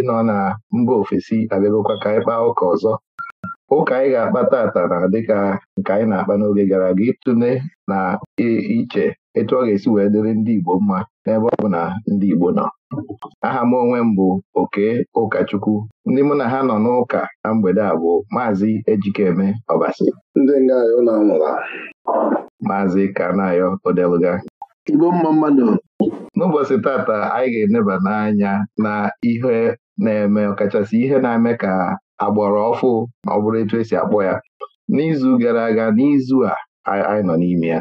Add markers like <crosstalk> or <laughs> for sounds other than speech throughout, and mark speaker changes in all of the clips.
Speaker 1: ndị nọ na mba ofesi abịagokwa ka anyị kpaa ụka ọzọ ụka anyị ga-akpa tata na dịka nke anyị na-akpa n'oge gara aga ịtụle na iche etu ọ ga-esi wee dịrị ndị Igbo mma n'ebe ọ bụ na ndị Igbo nọ aha m onwe m bụ oke ụkọchukwu ndị mụ na ha nọ n'ụka na mgbede a bụ maazị Ejikeme Ọbasi ndị nga maazị Kanayo Odeluga n'ụbọchị tata anyị ga-eneba n'anya na ihe na-eme ọkachasị ihe na-eme ka agbọrọ ọfụ ma ọ bụrụ etu esi akpọ ya n'izu gara aga n'izu a anyị nọ n'ime ya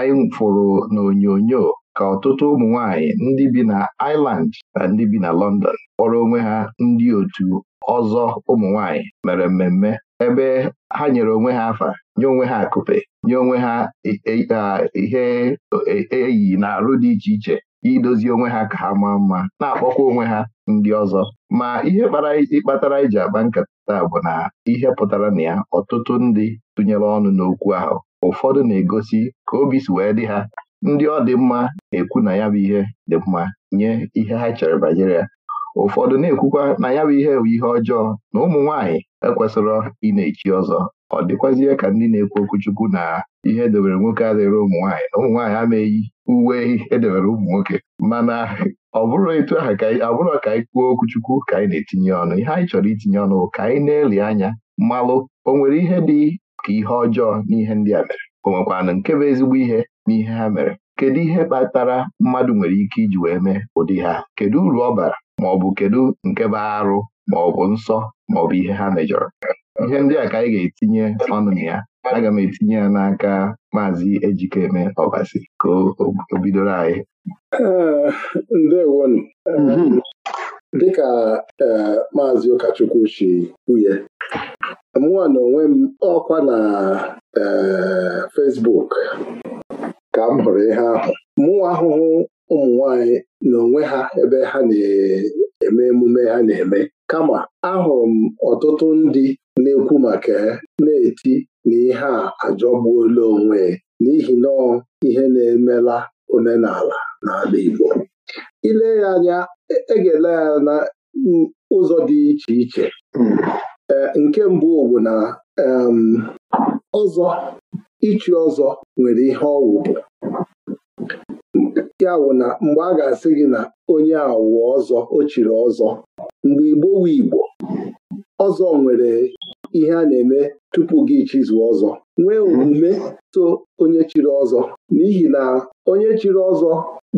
Speaker 1: anyị fụrụ n'onyonyo ka ọtụtụ ụmụ nwanyị ndị bi na Ireland na ndị bi na London kpọrọ onwe ha ndị otu ọzọ ụmụ nwanyị mere mmemme ebe ha nyere onwe ha afa nye onwe ha akụpe nye onwe ha ihe eyi na arụ dị iche iche idozi onwe ha ka ha maa mma na-akpọkwa onwe ha ndị ọzọ ma ihe kpara ịkpatara iji akpa nkata bụ na ihe pụtara na ya ọtụtụ ndị tụnyere ọnụ n'okwu ahụ ụfọdụ na-egosi ka obi si wee dị ha ndị ọ dị mma na-ekwu na ya bụ ihe dị mma nye ihe ha chere banyere ya ụfọdụ na-ekwukwa na ya bụ ihe bụ ihe ọjọọ na ụmụ nwaanyị ekwesịrọ ị na-echi ọzọ ọ dịkwazie ka ndị na-ekwu okwuchukwu na ihe edobere nwoke adịghịrị ụmụ nwaanyị na ụmụ nwaanyị ama eyi uwe edebere ụmụ nwoke mana ọ bụrụ etu aha abụrọ ka anyị kwuo okwuchukwu ka anyị na-etinye ọnụ ihe anyị chọrọ itinye ọnụ ka anyị na-eli anya mmalụ o nwere ihe dị ka ihe ọjọọ n'ihe ndị a mere o nwekwanụ nke bụ ezigbo ihe n'ihe ha mere kedu ihe kpatara mmadụ nwere ike iji wee mee ụdị ha kedu uru ọ bara maọbụ kedu nke bụ arụ bụ nsọ maọbụ ihe ha mejọrọ ihe ndị a ka anyị ga-etinye ọnụ na ya aga m etinye ya n'aka maazị Ejikeme
Speaker 2: Ọbasi ka o bidoro anyị eh, ndewonu mhm. eh, dịka eh, maazị ụkọchukwu si kwuye mụwa na onwe m ọkwa na Fesbuk ka m hụrụ ihe ahụ mụ ahụhụ ụmụ nwanyị na onwe ha ebe ha na-eme emume ha na-eme kama ahụrụ m ọtụtụ ndị na-ekwu maka na-eti na ihe a ajọgbuola onwe n'ihi na ihe na-emela omenala n'ala Igbo ile ya anya egele e ya na ụzọ dị iche iche hmm. eh, nke mbụ bụ na ọzọ ịchị ọzọ nwere ihe ọwụ ya wụ na mgbe a ga-asị gị na onye awụ ọzọ o chiri ọzọ mgbe Igbo Igbo ọzọ nwere ihe a na-eme tupu gị chizụọ ọzọ nwee omume so onye chiri ọzọ n'ihi na onye chiri ọzọ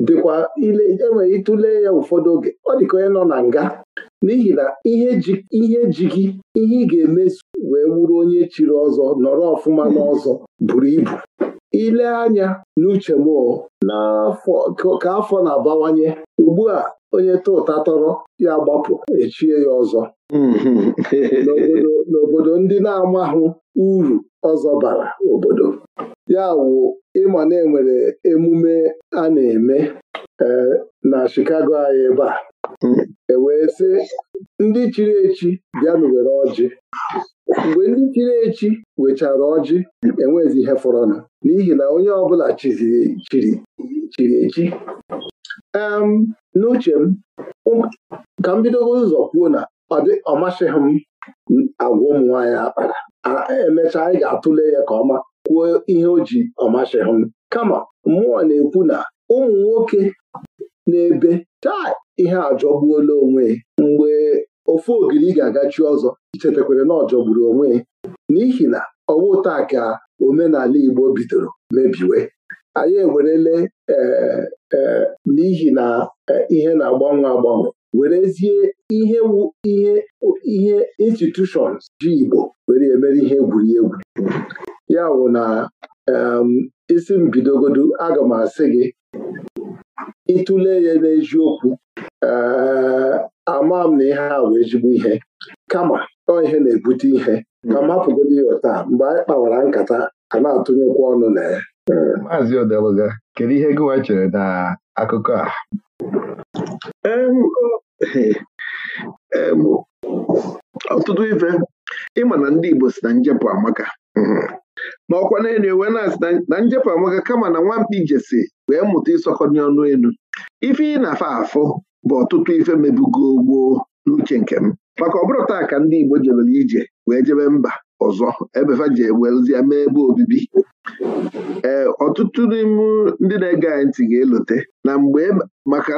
Speaker 2: dịkwa ile enwere ịtụle ya ụfọdụ oge ọ dịka onye nọ na nga n'ihi na ihe ji gị ihe ị ga-emezu wee wuru onye chiri ọzọ nọrọ ọfụma n'ọzọ buru ibu ile anya n'uche n'afọ ka afọ na-abawanye ugbu a onye tụ ụta tọrọ ya gbapụ echie ya ọzọ hmm. n'obodo ndị na-amahụ uru ọzọ bara obodo ya wụ ịma na enwere emume a na-eme e, na Chicago anyị ebe a ewee sị ndị chiri echi bịa were ọjị mgbe ndị chiri echi wechara ọjị enwezi ihe fọrọnụ n'ihi na onye ọbụla chiri echi n'uche m ka m bidogo ụzọ kwuo na ọ masịghị m agwa ụmụ nwaanyị akpara e, emechaa anyị ga-atụle ya ka ọma kwuo ihe o ji ọmasịghị m kama mmụọ na-ekwu na ụmụ nwoke na-ebe taa ihe ajọgbuola onwe mgbe ofu ogiri ga-agachi ọzọ chetakwara na ọjọgburu onwe n'ihi na ọwụ taa ka omenala Igbo bidoro mebiwe anyị ewerele e, e, n'ihi na e, ihe na-agbanwe agbanwe werezie ihe ihe ihe institushons ji Igbo were emere ihe egwuregwu ya wụ na isi m bidogodu aga m asị gị ịtụle ya n'eziokwu ama m na ihe a wee ezigbo ihe kama ọ ihe na-ebute ihe ka m hapụgodo ya a, mgbe anyị kpawara nkata a na-atụnyekwa ọnụ na ya Maazị Odeluga kedu ihe gịwa chere na akụkọ a ọtụtụ ife ịma na ndị Igbo si na njepụ amaka n'ọkwa mhm. n'elu ewe na-asị na njepụ amaka kama na nwamkpi Ijesi wee mụta ịsọkọnye ọnụ elu ife ị na-afa afụ bụ ọtụtụ ife mebugo gboo n'uche nke m maka ọ bụrụ taa ka ndị Igbo jebere ije wee jebe mba ọzọ ebefa ji ewezie mee ebe obibi ee ọtụtụ n'ime ndị na-ege anyị ntị ga-elote na mgbe e, maka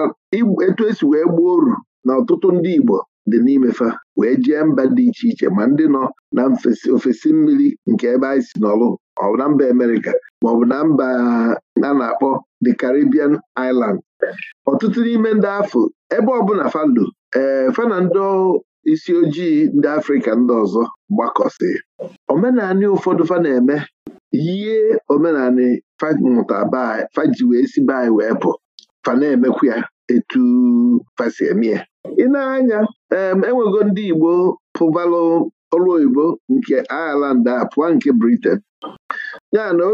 Speaker 2: etu esi wee gbuo oru na ọtụtụ ndị Igbo dị n'imefa wee jee mba dị iche iche ma ndị nọ na ofesi mmiri nke ebe anyị si n'ọlụ na mba Amerịka maọbụ na mba a na-akpọ the Caribbean Island ọtụtụ n'ime ndị afọ ebe ọbụla falo ee fana ndị isi ojii ndị Afrika ndị ọzọ gbakọsị omenanị ụfọdụ fa na-eme yie omenanị famụta faji wee si be anyị wee fa na-emekwu ya etu fasi eme ya ị na-anya enwego ndị Igbo pụbalụ ọrụ oyibo nke Ireland a pụọ nke Britain ya na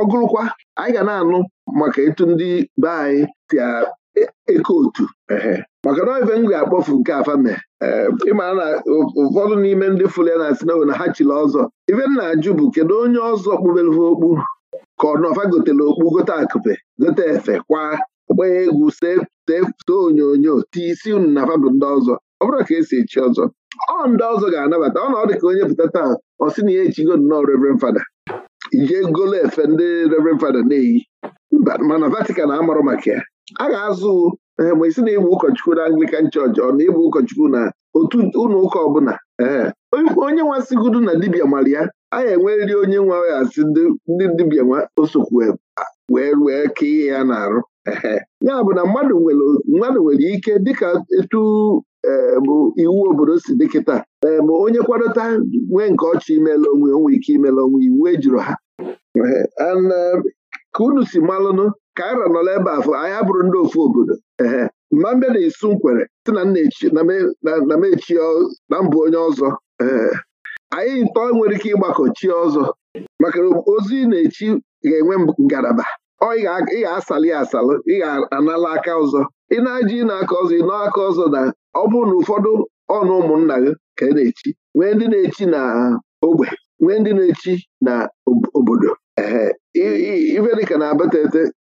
Speaker 2: ọgụrụkwa anyị ga na-anụ maka etu ndị be anyị eko e otu maka na ife m ga-akpọfu nke afame ịmara na ụfọdụ n'ime ndị fụrụ ya na sinawo na ha chiri ọzọ ife m na-ajụ bụ kedu onye ọzọ kpubere okpu ka ọ nọfa gotere okpu gote akụpe gote efe kwa gbaa egwu setee onyonyo tii, isi unu na fabụ ndị ọzọ ọ bụrụ ka esi echi ọzọ ọ ndị ọzọ ga-anabata ọ na ọ dị ka onye pụta taa ọ sị na ya echigo nnọọ reverend fada ije golo efe ndị reverend fada na-eyi mba mana Vatican amarụ maka ya a ga-azụ eh, ma isi na-ebu ụkọchukwu na Anglican Church ọ na ịbụ ụkọchukwu na otu ụlọ ụka ọbụla eh, onye nwa sigudu na dibia mara ya a ga-enwerịrị onye nwa ya asị ndị dibịa nwa osokwu wee wee kee ya na-arụ eh, ya bụ na mmadụ nwere ike dịka etu bụ iwu obodo si dị kịta ma onye kwadota nwee nke ọchị imela onwe onwe ike imela onwe iwu ejuru ha ka unu si malụnụ kaira nọ ebe afọ anyị abụrụ ndị ofu obodo ehe mmambịa na-esu nkwere si na na mechi na mbụ onye ọzọ ee anyị ntọ nwere ike ịgbakọ chi ọzọ maka ozi na-echi ga-enwe ngalaba ọ ị ga-asalị asalụ ị ga-anala aka ọzọ ị na-aji aka ọzọ ị aka ọzọ na ọ bụrụ na ụfọdụ ọnụ ụmụnna gị ka ị na-echi nwee ndị na-echi na ogbe nwee ndị na-echi na obodo ee ife dịka na-abata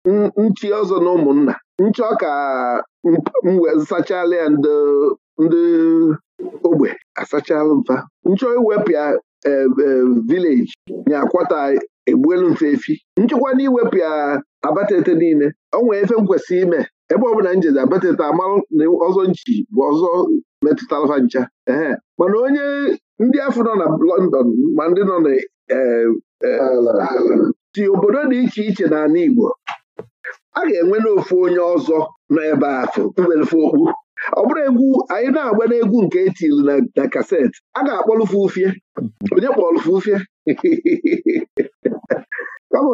Speaker 2: nchi ọzọ na ụmụnna nchọ ka sachala ya ndị ogbe asachala mfa nchọ iwepụ ya e, e, vileji nyakwata egbuelu mfe efi nchekwa na iwepụ ya abatete niile ọ nwere efe m ime ebe ọbụla njeze abatete amalụ na ọzọ nchi bụ ọzọ metụtara ncha ehe mana onye ndị afọ nọ na London ma ndị nọ na e, si obodo dị iche iche n'ala Igbo a ga-enwe n'ofu onye ọzọ nọ ebe afụ iwelefe okpu ọ bụrụ egwu anyị na-agba n'egwu nke etili na kaseti a ga-akpọlụfe ufie onye kpọlụfe ufie kama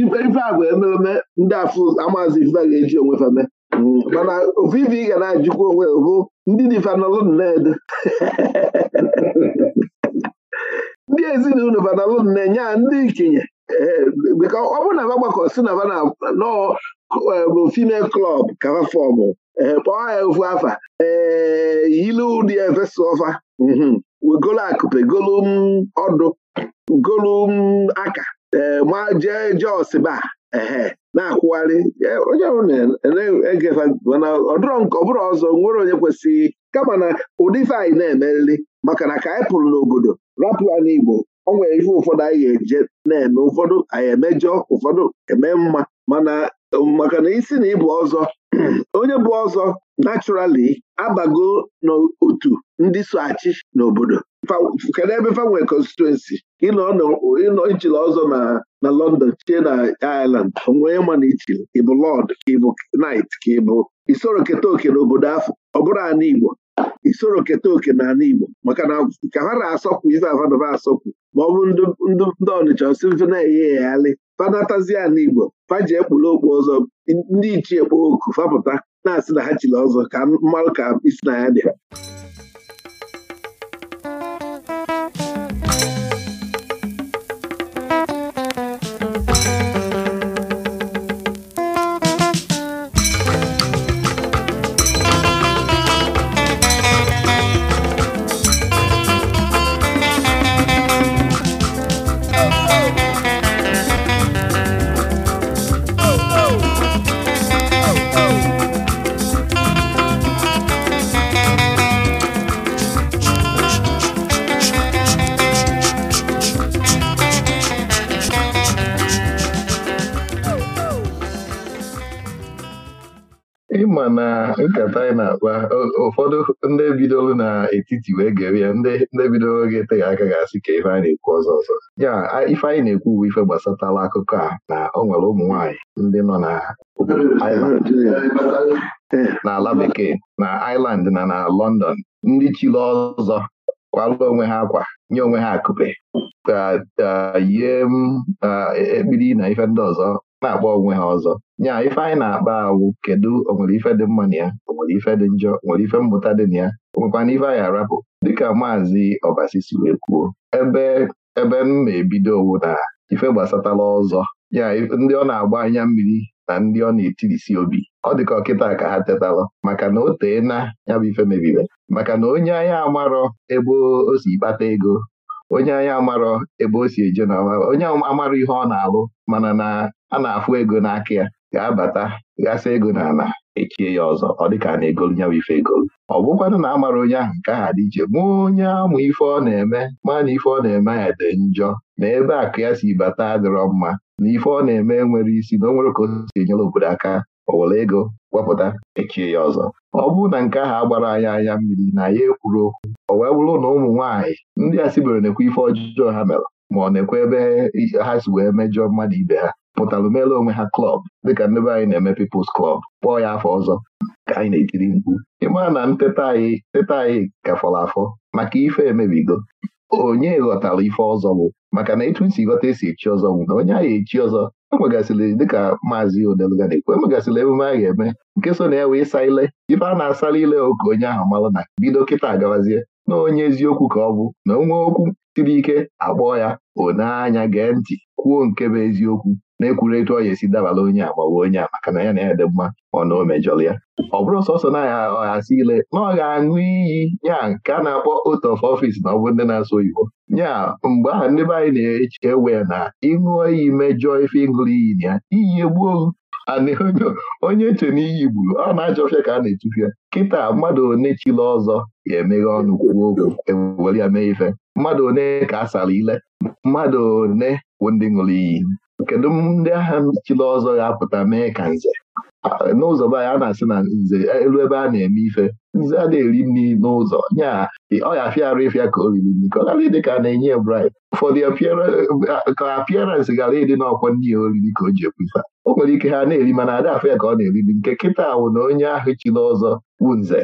Speaker 2: ife agwa emereme ndị afụ amaazị ife ga-eji onwe feme mm, mana ofu ife ị ga na-ajụkwa onwe bụ ndị dị na nnede <laughs> ndị ezinụlọ fanalụ nne nya ndị ikenye Eh, ọ bụrụ na aba gbakọ si na na nọọ eh, female klọb kava fọmụ ee eh, kpọọ ya ofu afa ee yilu ụdị ọfa mhm. wegolu akụpe golu ọdụ golu aka ee ma jee jos ehe na-akwụgharị onye na ọ bụrụ ọzọ nwere onye kwesịghị kama na ụdị fe anyị na-emerịrị maka na ka anyị pụrụ n'obodo rapụ ya n'Igbo o nwere ihe ụfọdụ anyị ga-eje na-eme ụfọdụ anyị emejọ ụfọdụ eme mma mana um, maka na isi na ịbụ ọzọ <clears throat> onye bụ ọzọ naturally abago n'otu ndị so achị n'obodo kedu ebe fanwe konstituensi ịnọ ichile ọzọ na na London chie na Ireland onwee ma na ịbụ lọd ịbụ knight ka ịbụ isoro keta oke n'obodo afọ ọ bụrụ ana Igbo isoro keta oke na ala Igbo maka na ka ha na-asọkwu ife avanova asọkwu ma ọ bụ ndị Ọnịcha si mfe na eghe ya e, alị na Igbo faji ekpuru okpu ọzọ ndị ichie kpoo oku fapụta na-asị na ha chiri ọzọ ka mmalụ ka isi na ya dị
Speaker 1: nkata anyị na-akpa ụfọdụ ndị bidoro n'etiti wee gere ya ndị bidoro ga eteghị aka ga-asị ka ife a na-ekwu ọzọ ọzọ ya ife anyị na-ekwu bụ ife gbasatala akụkọ a na ọ nwere ụmụ nwaanyị ndị nọ na n'ala bekee na Ireland na na London ndị chiri ọzọ kwalụ onwe ha akwa nye onwe ha akụpe yie e, ekpiri na ife ndị ọzọ na-agba onwe ha ọzọ nya ife anyị na-akpa awụ kedu onwere ife dị mma na ya onwere ife dị njọ onwere ife mmụta dị na ya onwekwana ife anyị arapụ dịka maazị
Speaker 2: ọbasisi si wee kwuo
Speaker 1: ebe ebe m na-ebido owu na ife gbasatala ọzọ ya ndị ọ na-agba anya mmiri na ndị ọ na-etirisi obi ọ ka ọkịta ka ha tetalụ maka na o tee na ya bụ ife mebiri, maka na onye anyị amarọ ebe o si kpata ego onye anya amarọ ebe o si eje na onye amarọ ihe ọ na-alụ mana na a na-afụ ego n'aka ya ga-abata ghasa ego na ala echie ya ọzọ ọ dịka na egolu nyawa ife egolu ọ bụkwanụ na amara onye ahụ nke aha dị iche ma onye amụ ife ọ na-eme ma na ife ọ na-eme ya dị njọ na ebe akụ ya si bata adịrọ mma na ife ọ na-eme nwere isi na o nwere ka o si enyere obodo aka o ego wepụta echie ya ọzọ ọ bụrụ na nke ahụ agbara anyị anya mmiri na ya ekwuru okwu o wee bụrụ na ụmụ nwaanyị ndị a sibere na-ekwe ife ọjọọ ha mere ma ọ na-ekwe ebe ha si wee mejọ mmadụ ibe ha pụtara mere onwe ha klọb dịka ndebe anyị na-eme People's klọb, kpọọ ya afọ ọzọ ka anyị na-etiri mkpu ịmaa na nteta anyị teta anyị afọ maka ife emebigo onye ghọtara ife ọzọ bụ maka na etu isi ghọta esi echi ọzọ bụ na onye agha echi ọzọ enwegasịrị dịka maazị e enwegasịrị emume a ga-eme nke so na ya wee saa ile ife a na-asara ile ụka onye ahụ mara na bido kịta gawazie na onye eziokwu ka ọ bụ na onwe okwu siri ike akpọọ ya oneanya gee ntị kwuo nke bụ eziokwu na-ekwuru etu ọ esi dabala onye a gbawa onye a maka na ya na ya dị mma ọ na o mejọrọ ya ọ bụrụ sọsọ na ya ọghasị ile na ọ ga-aṅụ iyi nya nke a na-akpọ otu of ọfịs na ọ bụ ndị na-asụ oyibo nya mgbe ahụ ndị be anyị na-echewe na ịṅụ iyi mejọọ ife ịṅụrụ iyi na ya iyi egbuo onye eche na iyi gburu ọ na achọfịa ka a na-etufịa kịta mmadụ one chila ọzọ ga-emeghe ọnụ kwuo okwu ewere ya mee ife mmadụ one ka a sara ile mmadụ one bụ ndị ṅụrụ iyi kedu ndị agha chili ọzọ ga-apụta mee ka nze n'ụzọ be anyị a na-asị na nze elu ebe a na-eme ife nze adịghị eri nri n'ụzọ nya ọ ya ịfịa ka o riri nri ka ọ ịdị ka a na-enye brid ụfọdụ ka apịaransị gara ịdị n'ọkwa nri ya oriri ka o ji ekwu o nwere ike ha na-eri mana adị afọ ka ọ na-eri nri nke kịta wụ na onye ahụ chili ọzọ bụ nze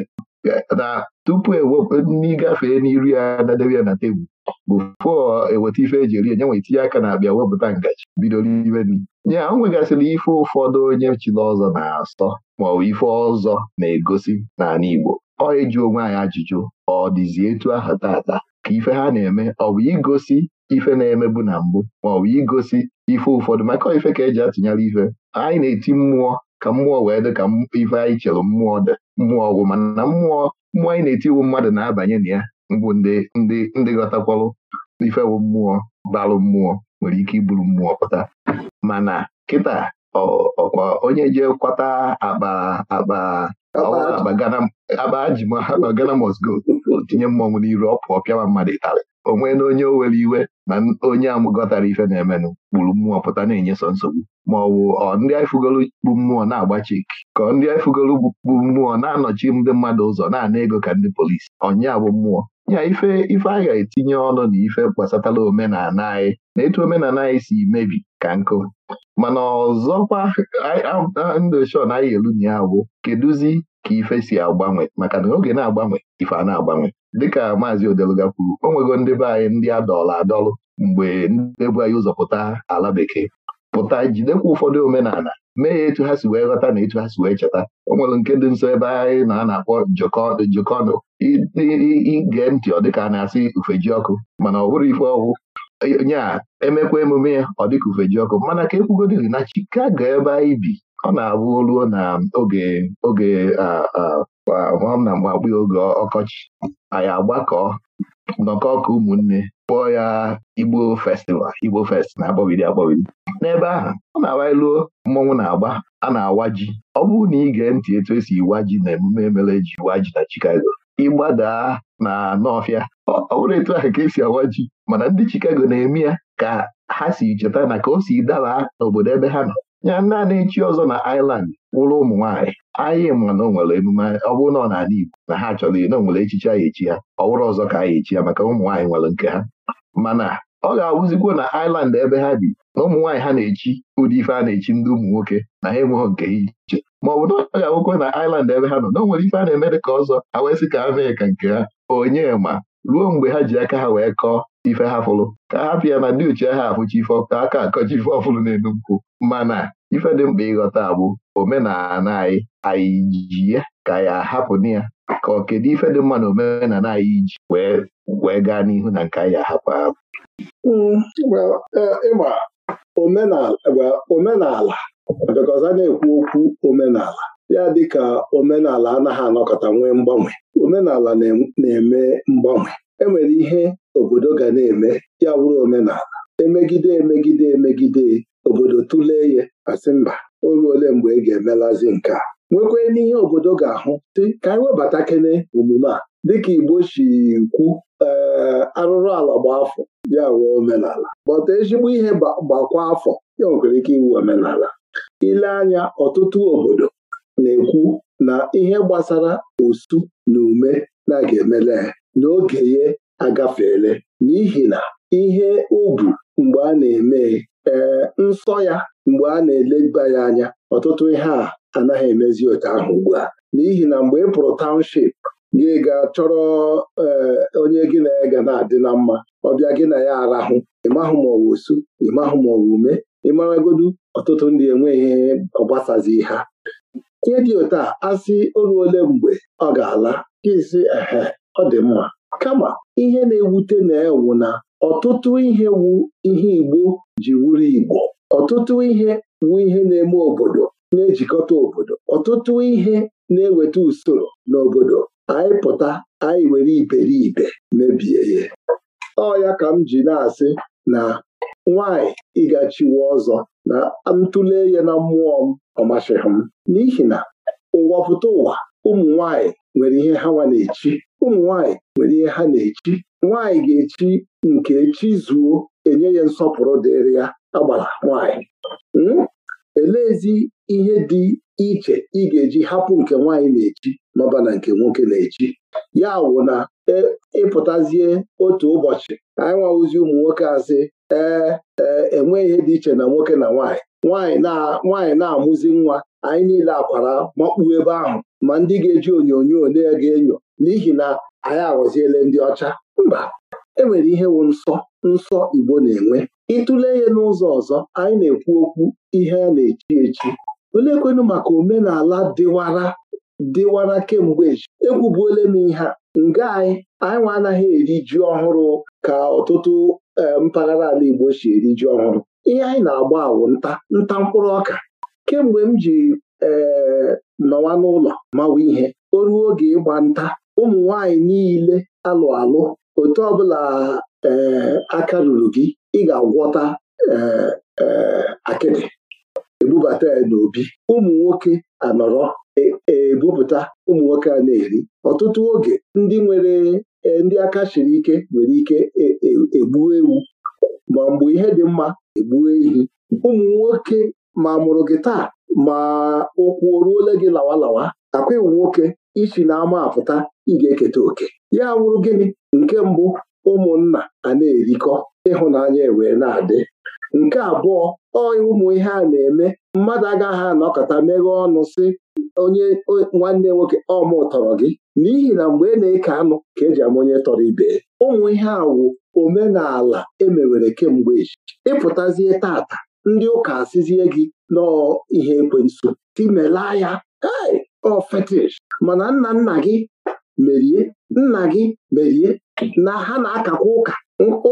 Speaker 1: na tupu e e, n'ịgafee n'iru ya na debe ya na tebụl bụ fụọ eweta ife eji eri enye nwe itinye aka na-abịa wepụta ngaji bido n'ime nri ya o nwegasịrị ife ụfọdụ onye chiri ọzọ na-asọ ma ọ bụ ife ọzọ na-egosi n'ala Igbo ọ eji onwe anyị ajụjụ ọ dịzi etu ahụ tata ka ife ha na-eme ọ bụ igosi ife na-emebu na mbụ ma ọ bụ igosi ife ụfọdụ maka ife ka eji atụnyere ife anyị na-eti mmụọ ka mmụọ wee dị ka ife anyị chere mmụọ mmụọ ọgwụ mana mmụọ mmụọ anyị na-eti iwu mmadụ na-abanye na ya mbụ ndị ndị ndị ghọtakwalụ ifewu mmụọ balụ mmụọ nwere ike iburu mmụọ pụta mana kịta ọkwa onye jee kwata akpa akpa akpa gana mosgo tinye mmọnwụ n'iru ọ pụọ pịawa mmadụ ịtarị onwe na onye owere iwe na onye amụgọtara ife na-emenụ kpuru mmụọ pụta na-enyeso nsogbu ma ọ bụ ọ ndị ifugolu bụ mmụọ na-agbachi ka ndị ifugolu bụ mmụọ na-anọchi ndị mmadụ ụzọ na-ana ego ka ndị polisi ọnya bụ mmụọ nya ife ife anyị etinye ọnụ na ife gbasatala omenala anyị na etu omenala anyị si mebi ka nkụ mana ọzọkwa ndị ochon anyị elu na ya bụ kedụzi ka ife si agbanwe maka na oge na-agbanwe ife a na-agbanwe dịka maazị Odeluga kwuru o nwego ndị be anyị ndị adọla adọlụ mgbe ndị anyị ụzọ pụta ala bekee pụta jidekwa ụfọdụ omenala mee ya etu ha si wee ghọta na etu ha si wee cheta o nwere nke dị nso ebe anyị na a na-akpọ jokọnụ ige ntị ọ dịka a na-asị ufeji ọkụ mana ọ bụrụ ife ọgwụ a emekwa emume ya ọ dịka ufeji ọkụ mana ka ekwugodiri na Chicago ebe anyị bi ọ na-abụ ruo na oge oge na mgbe oge ọkọchị anyị agbakọ nnọkọ ọka ụmụnne kpọọ ya Igbo festival Igbo fest na-akpọbiri akpọbiri n'ebe ahụ ọ na-awa iluo mmọnwụ na-agba a na-awa ji ọ bụrụ na ị ntị etu esi iwa ji na emume emere eji iwa ji na Chicago ịgbadaa na n'ọfịa ọ bụrụ etu ahụ ka esi awa ji mana ndị Chicago na-eme ya ka ha si cheta na ka o si daba n'obodo ebe ha nọ ya naanị echi ọzọ na Ireland wụrụ ụmụ nwaanyị anyị ma na o nwere emume ọ bụrụ na ọ na-ala Igbo na ha chọrọ na o nwere a anyị echi ya ọ wụrụ ọzọ ka anyị echi ya maka ụmụ nwaanyị nwere nke ha mana ọ ga-awụzikwo na iland ebe ha bi na ụmụ nwaanyị ha na-echi ụdị ife a na-echi ndị ụmụ nwoke na ha enweghị nke iche ma ọ bụ na ọ ga-awụkwo na Ireland ebe ha nọ na o nwere ife a na-eme dị ka ọzọ ha wee ka ha mee ka nke ha onye ma ruo mgbe ha ji aka ha wee kọọ ife ha fụlụ ka hapụ ya na ndị uche ha afụchi ife ka aka akọchi ife ọfụlụ na-enu mana ife dị mkpa ịghọta bụ omenala anyị anyị ji ya ka ya hapụ na ya ka ọ kedu ife dị mma na omenala anyị ji wee gaa n'ihu
Speaker 2: na nke anyị ahapụ ahapụ hmm, eh, omenala because na-ekwu okwu omenala ya dịka omenala anaghị anọkọta nwee mgbanwe omenala na-eme mgbanwe enwere ihe obodo ga na-eme ya wụrụ omenala emegide emegide emegide obodo tụlee ya asị mba o ruole mgbe ị e ga-emelazi nke a nwekwee n'ihe obodo ga-ahụ dị ka anyị webata kene omume a dịka Igbo si kwu ee arụrụ ala gba afọ ya wuo omenala gbata ezigbo ihe gbakwa afọ ya nwekwara ike iwu omenala ile anya ọtụtụ obodo na-ekwu na ihe gbasara osu na ume na-aga emele n'oge ya agafeela n'ihi na ihe ugwu mgbe a na-eme ee nsọ ya mgbe a na-eleba ya anya ọtụtụ ihe a anaghị emezi otu ahụ ugbu a n'ihi na mgbe ị pụrụ township gị ga chọrọ e, onye gị na ya ga na-adị na mma ọbịa gị na ya arahụ ịmahụ ma ọwa osu ịmahụ ma ọwa ume ịmaragodu ọtụtụ ndị enweghị ọgbasazi ha ihe dị otu a asị olu ole mgbe ọ ga-ala kesi ehe ọ dị mma kama ihe na-ewute na-ewu na ọtụtụ ihe wu ihe Igbo ji wuru Igbo ọtụtụ ihe wu ihe na-eme obodo na-ejikọta obodo ọtụtụ ihe na-eweta usoro n'obodo anyị pụta anyị were iberibe mebie ya ọ ya ka m ji na-asị na nwanyị ịgachiwe ọzọ na ntụle ya na mmụọ m ọ masịghị m n'ihi na ụwa pụta ụwa ụmụ nwanyị nwere ihe ha nwa na-echi ụmụ nwanyị nwere ihe ha na-echi nwaanyị ga-echi nke echi zuo enye ya nsọpụrụ dịrị ya agbara nwaanyị hmm? eleezi ihe dị iche ị ga-eji hapụ nke nwaanyị na-echi n'ọba na nke nwoke na-echi ya wụ na e, ịpụtazie otu ụbọchị anyị nwawụzi ụmụ nwoke asị ee enweghị ihe dị iche na nwoke na nwaanyị nwaanyị na-amụzi nwa anyị niile akwara makpuo ebe ahụ ma ndị ga-eji onyonyo na ga enyo n'ihi na anyị aghọziele ndị ọcha mba enwere ihe wụ nsọ nsọ Igbo na-enwe ịtụle ya n'ụzọ ọzọ anyị na-ekwu okwu ihe a na-echi echi olekwenu maka omenala dịwara dịwara kemgbe echi ekwubuole m ihe nga anyị anyị nwa anaghị eri ji ọhụrụ ka ọtụtụ eh, mpaghara ala Igbo si eri ji ọhụrụ ihe anyị na-agba awụ nta nta mkpụrụ ọka kemgbe m ji ee eh, nọwa n'ụlọ mawa ihe o ruo oge ịgba nta ụmụ nwanyị niile alụ alụ otu ọbụla ee eh, aka ruru gị ị ga-agwọta ee eh, eh, akịdị ebubata ya n'obi ụmụ nwoke anọrọ e, e, ebupụta ụmụ nwoke a na-eri ọtụtụ oge ndị nwere ndị aka siri ike nwere ike e, egbu ewu ma mgbe ihe dị mma egbuo ehi ụmụ nwoke ma mụrụ gị taa ma ụkwụ o gị lawa akwa iwu nwoke isi n'ama apụta ị ga-eketa oke ya wụrụ gịnị nke mbụ ụmụnna a na-erikọ ịhụnanya e wee na-adị nke abụọ ọ ụmụ ihe a na-eme mmadụ agaghị anọkọta meghee ọnụ si onye nwanne nwoke ọmụ tọrọ gị n'ihi na mgbe ị e na-eke anụ ka eji ama onye tọrọ ibe ụmụ ihe a omenala emewere kemgbe ịpụtazie tata ndị ụka asịzie gị nọọ ihe ekwensu timelaa ya ai ọ oh, fetish mana nna nna gị merie nna gị merie na ha na-akakwa ụka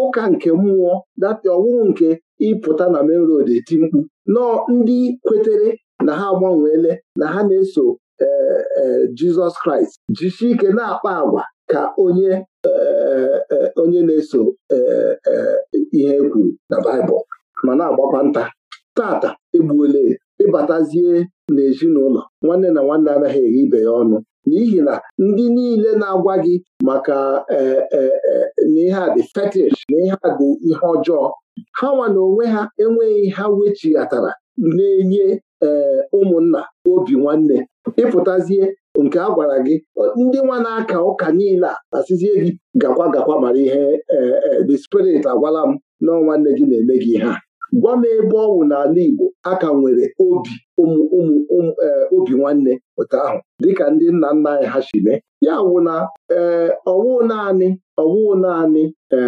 Speaker 2: ụka nke mmụọ dati ọwụwụ nke ịpụta na main road eti mkpu nọọ ndị kwetere na ha agbanweele na ha na-eso eh, eh, Jizọs Kraịst jichi ike na-akpa agwa ka onye eh, onye na-eso ihe e kwuru na Baịbụl ma na-agbakwa nta tata egbuole ya ịbatazie n'ezinụlọ nwanne na nwanne anaghị eghe ibe ya ọnụ n'ihi na ndị niile na-agwa gị maka e, e, e, na ihe a dị fetish na ihe a dị ihe ọjọọ ha nwa na onwe ha enweghị ha wechighatara na-enye ụmụnna obi nwanne ịpụtazie nke a gwara gị ndị nwa na-aka ụka niile a asịzie gị gakwa gakwa mara ihe the spirit agwala m na nwanne gị na-eme gị ihe gwa m ebe ọ n'ala Igbo a ka nwere obi e, obi nwanne pụta ahụ dịka ndị nna nna anyị ha si mee ya wụ na e, ọwụ naanị ọwụ naanị e,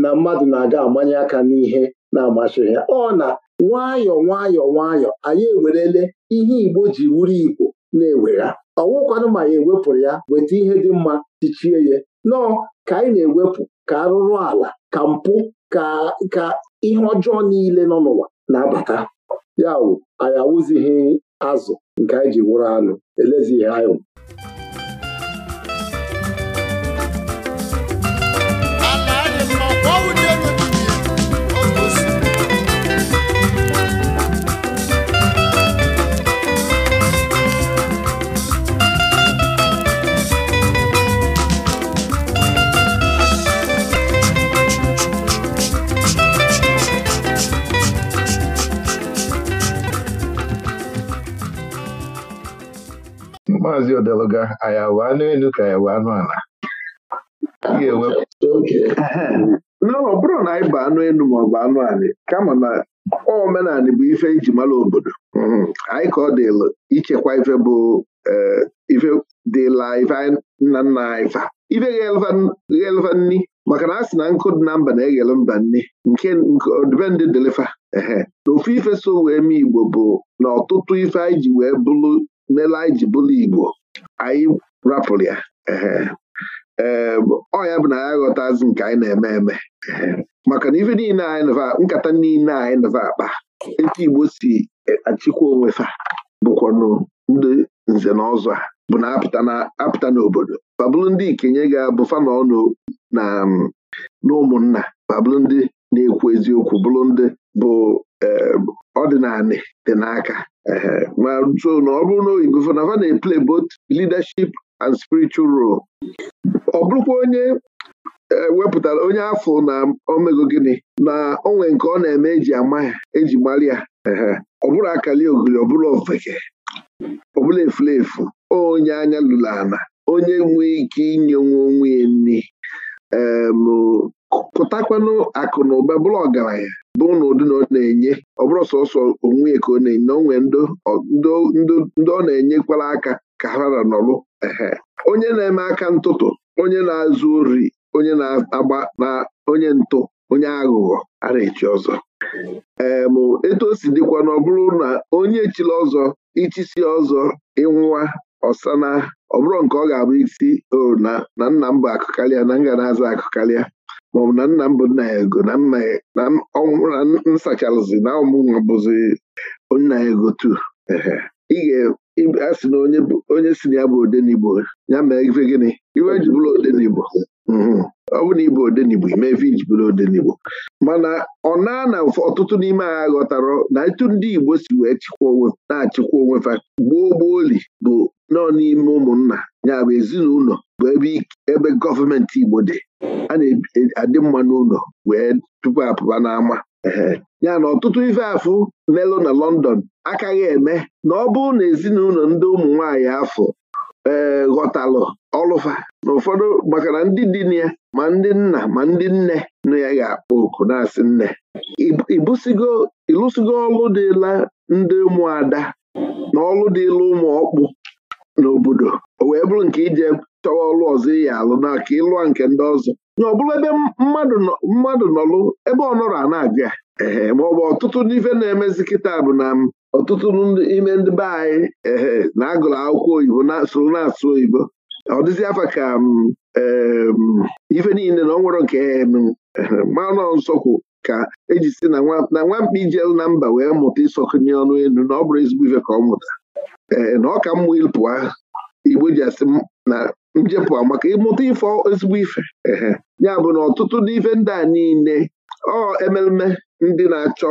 Speaker 2: na mmadụ na-aga amanye aka n'ihe na-amasịghị ya ọ na nwayọ nwayọ nwayọ anyị ewerele ihe Igbo ji wuru Igbo na-ewegha ọwụkwanụ ma ya ewepụrụ ya weta ihe dị mma tichie ya nọọ ka anyị na-ewepụ ka arụrụ ala ka mpụ ka ka ihe ọjọọ niile nọ n'ụwa na-abata ya wụ anyị awụzighị azụ nke anyị ji wụrụ anụ elezighị anya maazị odeluga anyị awụ anụ elu ka anyị awụ anụ ala ọ bụrụ na anyị bụ anụ elu ma ọ bụ anụ ala kama na omenala bụ ife iji mara obodo mm-hmm. anyị ka ọ dịlụ ichekwa ife bụ eh, ife dịla ife nna nna anyị fa ife ghelva nni maka na a sị na nkụ dị na mba na-eghele mba nni nke ọdịbendị dịlịfa ehe na ofu ife so wee mee Igbo bụ na ọtụtụ ife anyị ji wee bụrụ mela anyị ji bụlụ Igbo anyị rapụrụ ya ọ ya bụ na ya aghọtazi nke anyị na-eme eme maka na ife niile anyị nava nkata niile anyị nava akpa etu Igbo si achịkwa onwe fa bụkwanụ ndị nze na ọzọ a bụ na apụta n'obodo babụlụ ndị ikenye ga-abụ fana ọnụ na ụmụnna babụlụ ndị na-ekwu eziokwu bụlụ ndị bụ Ehm, ọdịnala dị n'aka ehm, ma so na ọ bụrụ na oyibo fanafa na na-eple both leadership and spiritual role ọ bụrụkwa onye eh, wepụtara onye afọ na omego gịnị na onwe nke ọ na-eme eji ama ya eji mara ya ehm, ọ bụrụ akali ogiri ọ bụrụ ofekee ọ bụla onye anya lụrụ ana onye nwee ike inye nwa onwe ya nri pụtakwanụ akụ na ụba bụrụ ọgaranya bụ na ụdị na ọ na-enye ọ bụrụ sọsọ onwe ka ọ na-enye na onwe ndị ọ na-enyekwara aka ka ha na nọrụ ehe onye na-eme aka ntụtụ onye na-azụ ori onye na-agba na onye ntụ onye aghụghọ a na-echi ọzọ ee mụ etu o si dịkwa na ọ bụrụ na onye chiri ọzọ ichisi ọzọ ịnwụwa ọsana ọ bụrụ nke ọ ga-abụ isi o na nna m bụ akụ na na ga na-aza akụ maọbụ na nna m bụ nna ya ego na nna ya na ọnwụ na nsachalụzi na ọmụnwa bụzi nna ya ego tu a sị na onye si na ya bụ odenigbo ya mee ife gịnị iwe ji bụrụ odenigbo mm-hmm. ọ bụ na ịbụ odenigbo ime ife iji bụrụ odenigbo mana ọ na na ọtụtụ n'ime ha ghọtara na etu ndị Igbo si wee chịkwa onwe na-achịkwa onwe fa gboo gboo li bụ nọ n'ime ụmụnna ya bụ ezinụlọ bụ ebe ebe gọọmenti Igbo dị a na-adị mma n'ụlọ wee tupu apụba n'ama ya na ọtụtụ ife afụ melụ na London akaghị eme na ọ bụrụ na ezinụlọ ndị ụmụ nwaanyị afọ ee ghọtalụ ọlụfa na ụfọdụ maka na ndị dị ya ma ndị nna ma ndị nne nụ ya ga-akpọ oku na-asị nne ịlụsigo ọlụ dịla ndị ụmụada na ọlụ dịla ụmụ ọkpụ n'obodo o wee bụrụ nke ije chọwa ọlụ ọzọ iyi e alụ n'aka ịlụa nke ndị ọzọ nya ọ bụrụ ebe mmadụ nọlụ ebe ọ nọrọ a na-abịa ee maọbụ ọtụtụ n'ife na-emezi kịta bụ na ọtụtụ n'ime ndị be anyị ee na-agụrụ akwụkwọ oyibo soro na-asụ oyibo ọ dịzi afa ka ife niile na ọ nwere nke manụ nsọkwu ka eji si na nwamkpa ijelu na mba wee mụta ịsọkụnye ọnụ elu na ọ bụrụ ezigbo ife ka ọ mụta Eh, na ọ ka mma ịpụa igbo ji asị na njepụ maka ịmụta ife ezigbo ife ya bụ na ọtụtụ n'ife ndị a niile ọ ememe ndị na-achọ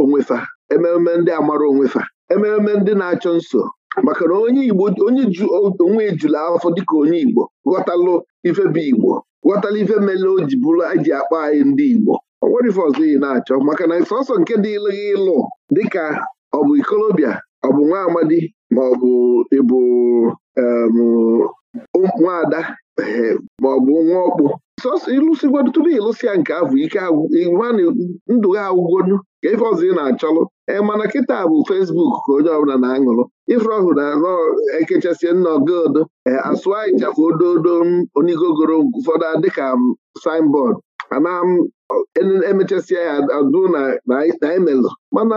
Speaker 2: onwefa ememe ndị amara onwefa ememe ndị na-achọ nso maka na onye igbo onye ju onwe ejula afọ dịka onye igbo ghọtalụ ife bụ igbo ghọtala ife mele o ji bụrụ eji akpa anyị ndị igbo ọ nwere ife ọzọ ị na-achọ maka na sọsọ nke dị ịlụghị ịlụ dịka ọ bụ ikolobịa ọ bụ nwa amadi ma ọ bụ ịbụ nwaada eh, ma ọ bụ nwa ọkpụ sọsọ ịlụsịgwado tupu ịlụsịa nke ahụ ike ndụ ha agwụgonu ka ife ọzọ ị na-achọlụ ee eh, mana kịta bụ fesbuk ka onye ọbụla na-aṅụrụ ife ọhụrụ na-arọ ekechasị nna ogodo ee eh, asụ anyị chafụ ododo onigogoro ụfọdụ dịka signboard ana emechasịa ya adụ na emelụ mana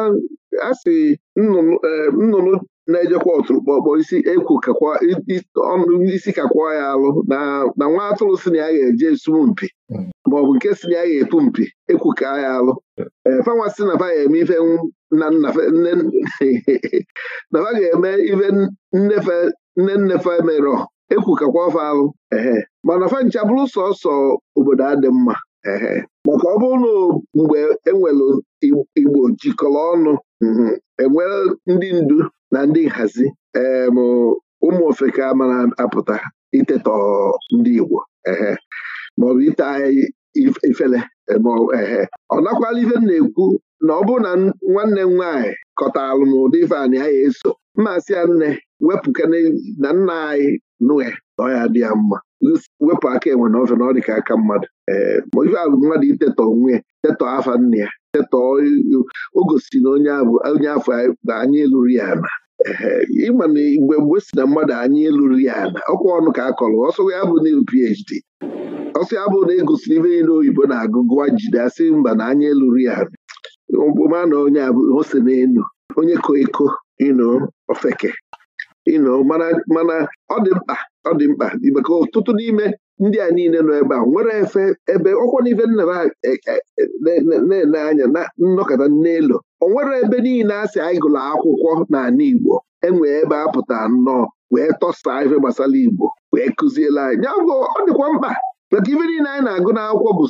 Speaker 2: a sị nnụnụ e, na-ejekwa ọtụrụkpọ kpọ isi ekwu isi kakwa ya alụ na nwa atụrụ si na ya ga-eje esumu mpi hmm. maọbụ nke si na ya ga-epu mpi ekwu ka ya alụ e, fanwa si na eme ife na ga-eme ife nnefe nne <laughs> nnefe mere ekwu kakwa ọfa alụ ehe mana fa bụrụ sọsọ obodo adị mma maka ọ bụrụ na mgbe enwere igbo jikọrọ ọnụ Mhm. enwere ndị ndu na ndị nhazi em ụmụ ofeke amara apụta itetọ ndị Igbo ehe maọbụ ite anya ifele ehe ọ nakwala ife m na-ekwu na ọ bụrụ na nwanne m nwaanyị kọtaalụ m ụdị anyị ya eso mmasị ya nne wepụ na nna anyị nụhe na ya dị ya mma wepụ aka enwe na ofe na ọ dị ka aka mmadụ ee ma ife abụ mmadụ itetọ onwe ya tetọ afa nne ya setọọ o gosi na onye afọ na anya eluru ya na ịma na igbe mgbe si na mmadụ anya elu ya na ọkwa ọnụ ka a kọrọ ọsọ ya bụ na PhD e ọsọ ya bụ na egosi ibe niile oyibo na-agụ gụwa jide asị mba na anya eluru ya na na onye ose elu onye ko eko ofeke ịnọ mana ọ dị mkpa ọ dị mkpa maka ọtụtụ n'ime ndị a niile nọ ebe a nwere efe ebe ọkwa n'ife nna e, e, e, na-ene anya na nnọkọta n'elu o nwere ebe niile a sị anyị gụrụ akwụkwọ n'ala Igbo enwee ebe a pụta nnọọ wee tọsaa ife gbasara Igbo wee kụziela anyị ya ọ dịkwa mkpa maka ife niile anyị na-agụ n'akwụkwọ bụ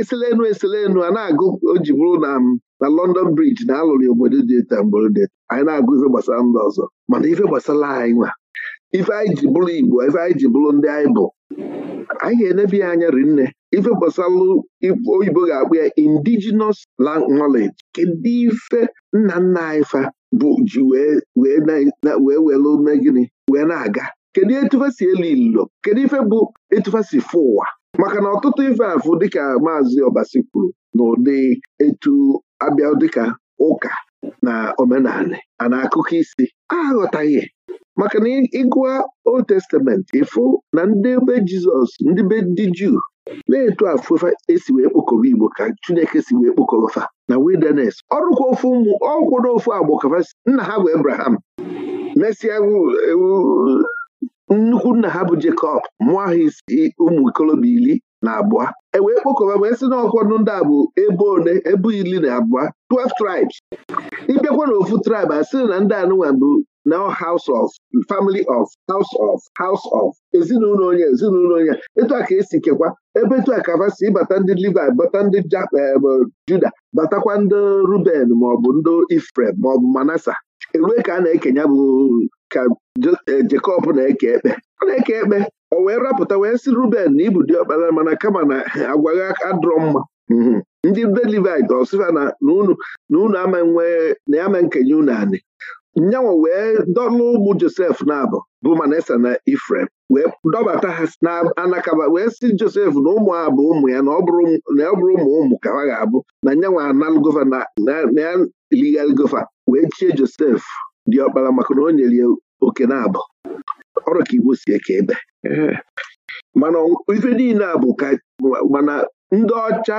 Speaker 2: eselenu eselenu a na-agụ o ji bụrụ na na London Bridge na alụrụ obodo dị eta mgborode anyị na-agụ ife gbasara ndị ọzọ mana ife gbasara anyị nwa ife anyị ji bụrụ Igbo ife anyị ji bụrụ ndị anyị bụ anyị ga-enebe ya anya nne. ife gbasalụ oyibo ga-akpụ ya indigenous knowledge kedu ife nna nna anyị fa bụ ji wee welu megịnị wee na-aga kedu etufesi elu ilo kedu ife bụ etufesi fụ ụwa maka na ọtụtụ ife afụ dịka maazị Ọbasi kwuru na ụdị etu abịa dịka ụka na omenala a na akụkọ isi aghọtaghị maka na ịgụa Old Testament ịfụ na ndị be Jizọs ndị be ndị Juu na-etu afụfa esi wee kpokọba Igbo ka Chineke si wee kpokọba na wilderness ọrụkwa ofu ụmụ ọkwụna ofu agbọ kafa nna ha bụ Abraham mesịa nnukwu nna ha bụ Jacob mụọ ha isi ụmụ ikolobịa iri na abụọ e wee kpokọba wee sị na ọkwọdụ ndị a bụ ebe one ebe iri na abụọ 12 tribes ịbịakwa na ofu tribe a sị na ndị anụnwa bụ now house of family of house of house of ezinụlọ onye ezinụlọ onye etu a ka esi kekwa ebe etu a ka si bata ndị Levi bata ndị eh, Juda batakwa ndị Ruben maọbụ ndị Ifrem maọbụ Manasa erue ka a na-ekenya bụ ka Jekọb eh, na-eke ekpe a na-eke ekpe o wee rapụta wee sị Ruben na ibu dị ọkpara mana kama na eh, agwaghị adrọ mma mhm. ndị be Levi ọsịfa na unu ama nwe na ama nkenye unu anị nyanwa wee dọlụ ụmụ Josef na-abụ bụ Manase na Ifrem wee dọbata ha na-anakaba wee si Josef na ụmụ abụ ụmụ ya na ọ bụrụ ụmụ ụmụ ka ha ga-abụ na nyanwa analụgova na ya gova wee chie Josef dị ọkpara maka na o nyere ya oke na-abụ ọrụ ka Igbo si eke ebe mana ife niile a bụ ka mana ndị ọcha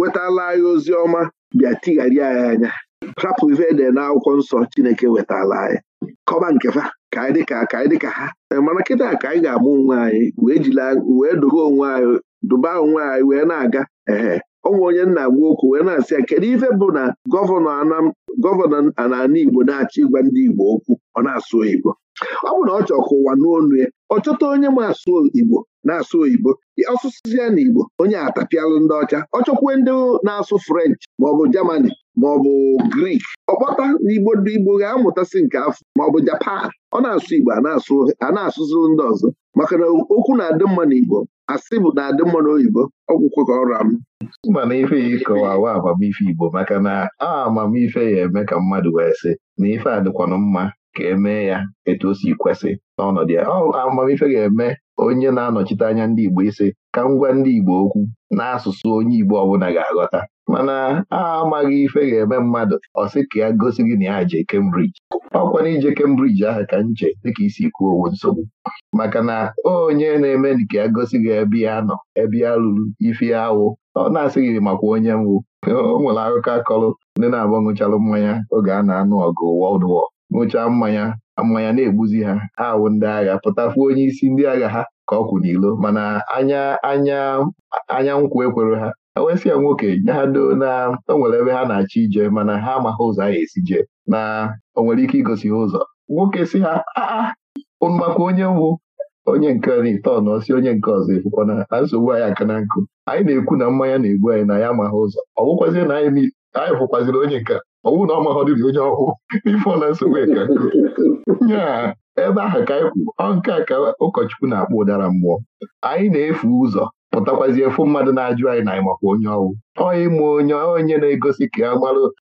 Speaker 2: wetala anyị ozi ọma bịa tigharịa ya anya hapụ ife ede n'akwụkwọ nsọ Chineke wetala anyị kọba nke fa ka anyị dịka ka anyị dịka ha eh, mana kịta ka anyị ga-ama onwe anyị wee jila wee duba onwe anyị duba onwe anyị wee na-aga ee onwe onye nna agwa okwu wee na-asị ya kedu ife bụ na gọvanọ n'ala Igbo na-achọ ịgwa ndị Igbo okwu ọ na-asụ oyibo ọ bụ na ọ chọọ ka ụwa n'onu ya ọ chọta onye m asụ Igbo na-asụ oyibo ọsụsụzi ya na Igbo onye atapịalụ ndị ọcha ọ chọkwue ndị na-asụ French maọbụ Germany maọbụ grik ọkpọta n'igbo ndị igbo ga-amụtasị nke afọ maọbụ japan ọ na-asụ igbo a na-asụziri ndị ọzọ maka na okwu na-adị mma n'igbo asị bụ na-adị mma n'oyibo ọgwụkwe ka ọra m na ife ya ịkọwawa amamife igbo maka na a amamife ya eme ka
Speaker 1: mmadụ wee sị na ife adịkwanụ mma ka emee ya etu o si kwesị n'ọnọdụ ya amamife ga-eme onye na-anọchite anya ndị Igbo ise ka m gwa ndị Igbo okwu n'asụsụ onye Igbo ọbụla ga-aghọta mana a amaghị ife ga-eme mmadụ ọ sị ka ya gosi gị na ya jee Cambridge ọkwana ije Cambridge ahụ ka nche dịka isi kwuo owo nsogbu maka na onye na-eme nke ya gosi gị ebe ya nọ ebe ya ruru ife awụ ọ na-asị gị makwa onye mwụ <laughs> o nwere akụkọ akọrọ ndị na-agba ṅụcharụ mmanya oge a na-anụ ọgụ World War ṅụchaa mmanya mmanya na-egbuzi ha ha awụ ndị agha pụtafuo onye isi ndị agha ha ka ọ kwụ n'ilo mana anya anya anya nkwụ ekwere ha ewesịa nwoke nye ha doo na o nwere ebe ha na-achọ ije mana ha amaghị ụzọ a ga-esi jee na o nwere ike igosi ha ụzọ nwoke si ha maka onye mbụ onye nke n'itọnụ si onye nke ọzọ efukwana na nsogbu anyị aka na nkụ anyị na-ekwu na mmanya na-egbu anyị na ya amaghị ụzọ ọ bụkwazị na anyị fụkwazịrị onye nke ọ na ọ maghọ dịrị onye ọkụ <laughs> ifeọla nsogbu ka nyaa ebe ahụ ka anyị kwụ ọ nke a ka ụkọchukwu na-akpọ ụdara mmụọ anyị na-efu ụzọ pụtakwazi efu mmadụ na-ajụ anyị na anyị makwa onye ọwụ ọ ịma onye onye na-egosi ka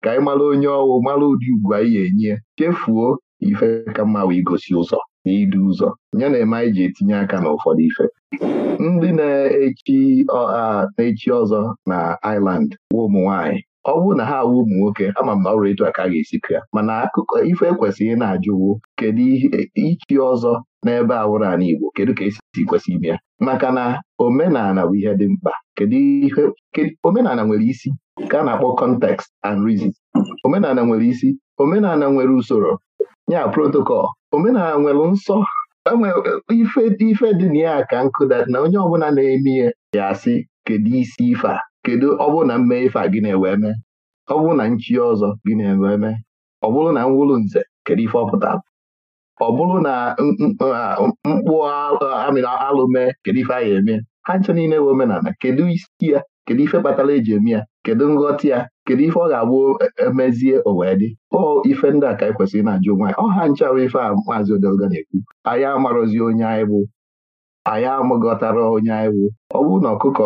Speaker 1: anyị mara onye ọwụ mara ụdị ugwu anyị ga-enye chefuo ife ka mma wee gosi ụzọ na idu ụzọ ya na-eme anyị ji etinye aka na ụfọdụ ife ndị na-echi na-echi ọzọ na iland wa ụmụ nwaanyị ọ bụrụ na ha awụ ụmụ nwoke ama m na ọrụ etu aka ga-esi ya mana akụkọ ife ekwesịghị na-ajụwo kedu ihe e, ichi ọzọ n'ebe awụrụ ana Igbo kedu ka esi kwesị ime ya maka na omenala bụ ihe dị mkpa kedu ihe omenala nwere isi ka a na-akpọ context and reason omenala nwere isi omenala nwere usoro ya protocol omenala nwere nsọ e ife dị ife na ya ka nkụda na onye ọbụla na-eme ya asị kedu isi ife a kedu ọ bụrụ na mme ife a gị na-ewee mee ọ bụrụ na nchi ọzọ gị na-ewee mee ọ bụrụ na mwụrụ nze kedu ife ọ ọpụta ọ bụrụ na mkpụ amịrị alụ mee kedu ife a ga eme ha ncha niile wee omenala kedu isi ya kedu ife kpatara eji eme ya kedu nghọta ya kedu ife ọ ga-abụ emezie e owee dị ọ ife ndị a ka anyị e kwesịrị na-ajụ onwe anyị ọ ha nchawa ife a maazị odelga na-ekwu anyị amarozi onye anyị bụ anyị amagọtara onye anyị bụ ọ bụrụ na ọkụkọ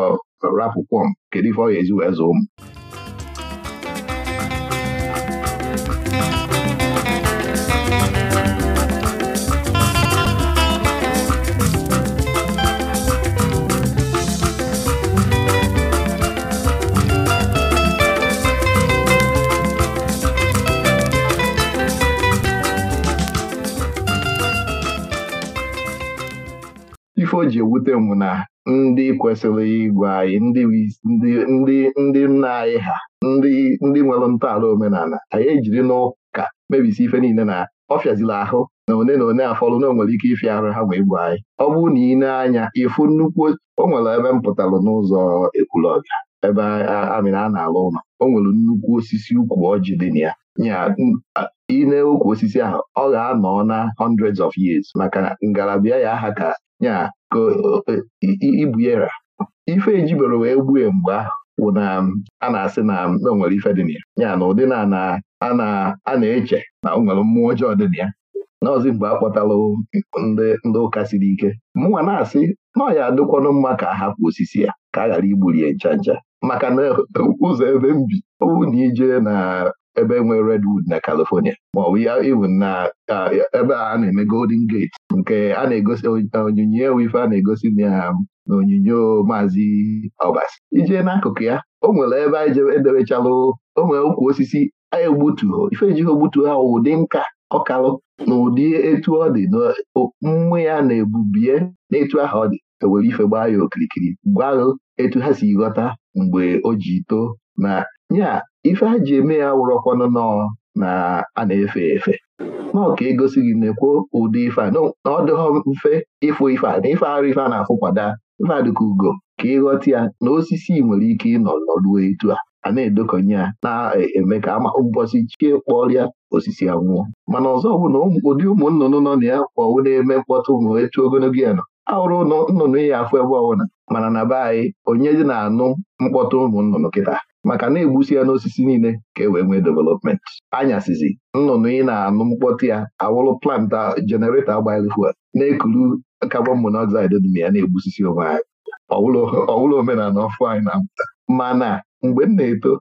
Speaker 1: rapụkwọm kedu ife ọ ga ezi wee zụọ m ife o ji ewute m na ndị kwesịrị ịgwa anyị ndị nna anyị ha ndị nwere ntọala omenala anyị ejiri n'ụka mebisi ife niile na ọ ọfịazila ahụ na one na one afọlụ na onwere ike ịfịa arụ ha wee gwa anyị ọ bụrụ na ị na-anya ịfụ nnukwu o nwere ebe m pụtalụ n'ụzọ ekwulọbịa ebe amịra a na-alụ ụlọ o nwere nnukwu osisi ukwu ọjị dị na ya nya ukwu osisi ahụ ọ ga-anọ na hundreds of years maka ngalaba ya aha ka nya ka e, ibu ya ife ejibere wee gbue mgbe ahụ wụ na a na-asị na o nwere ife dị na ya ya na ụdị na a na-eche na o nwere mmụọ ọjọọ dị na ya n'ọzi mgbe a kpọtalụ ndị ụka siri ike mụnwa na-asị na ọ ya adịkwanụ mma ka a hapụ osisi ya ka a ghara igburi ya ncha ncha maka na e, ụzọ ebe m bi ọ bụrụ na ije na ebe nwere redwood na California maọbụ ya even na ebe a na-eme Golden Gate nke a na-egosi onyinye wife a na-egosi na um, onyinyo maazị Obasi ijee n'akụkụ ya o nwere ebe anyị edebechalụ onwere nwere ukwu osisi anyị egbutuo ife ejighị ogbutuo ha ụdị nka ọkalụ na ụdị etu ọ dị na mmụ ya na-ebubie n'etu aha ọ dị ewere ife gbaa ya okirikiri gwaghụ etu ha si ghọta mgbe o ji too na ya ife a ji eme ya wụrọkwanụ nọọ na a na-efe efe nọọ ka egosi gị na-ekwo ụdị ife a na ọ dịghọ mfe ịfụ ife a na ife arụ ife a na-afụkwada ife a ugo ka ịghọta ya na osisi nwere ike ịnọ nọruo etu a a na-edokọnye ya na-eme ka ama mbọsị chie kpọrịa osisi anwụọ mana ọzọ bụ na ụdị ụmụ nnụnụ nọ na ya kpọwụ na-eme mkpọtụ ma etu ogologo ya nọ ahụrụ nnụnụ ya afọ ebe ọbụla mana na be anyị onye dị na-anụ mkpọtụ ụmụnnụnụ kịta maka na-egbusi ya n'osisi niile ka e wee nwee development anyasịzi nnụnụ ị na-anụ mkpọtụ ya awụrụ plant jenereta agbalị fuel na-ekuru carbon monoxide dị na ya na-egbusisi onwe anyị ọwụrụ omenala ọfụ anyị na-apụta
Speaker 2: mana mgbe m na-eto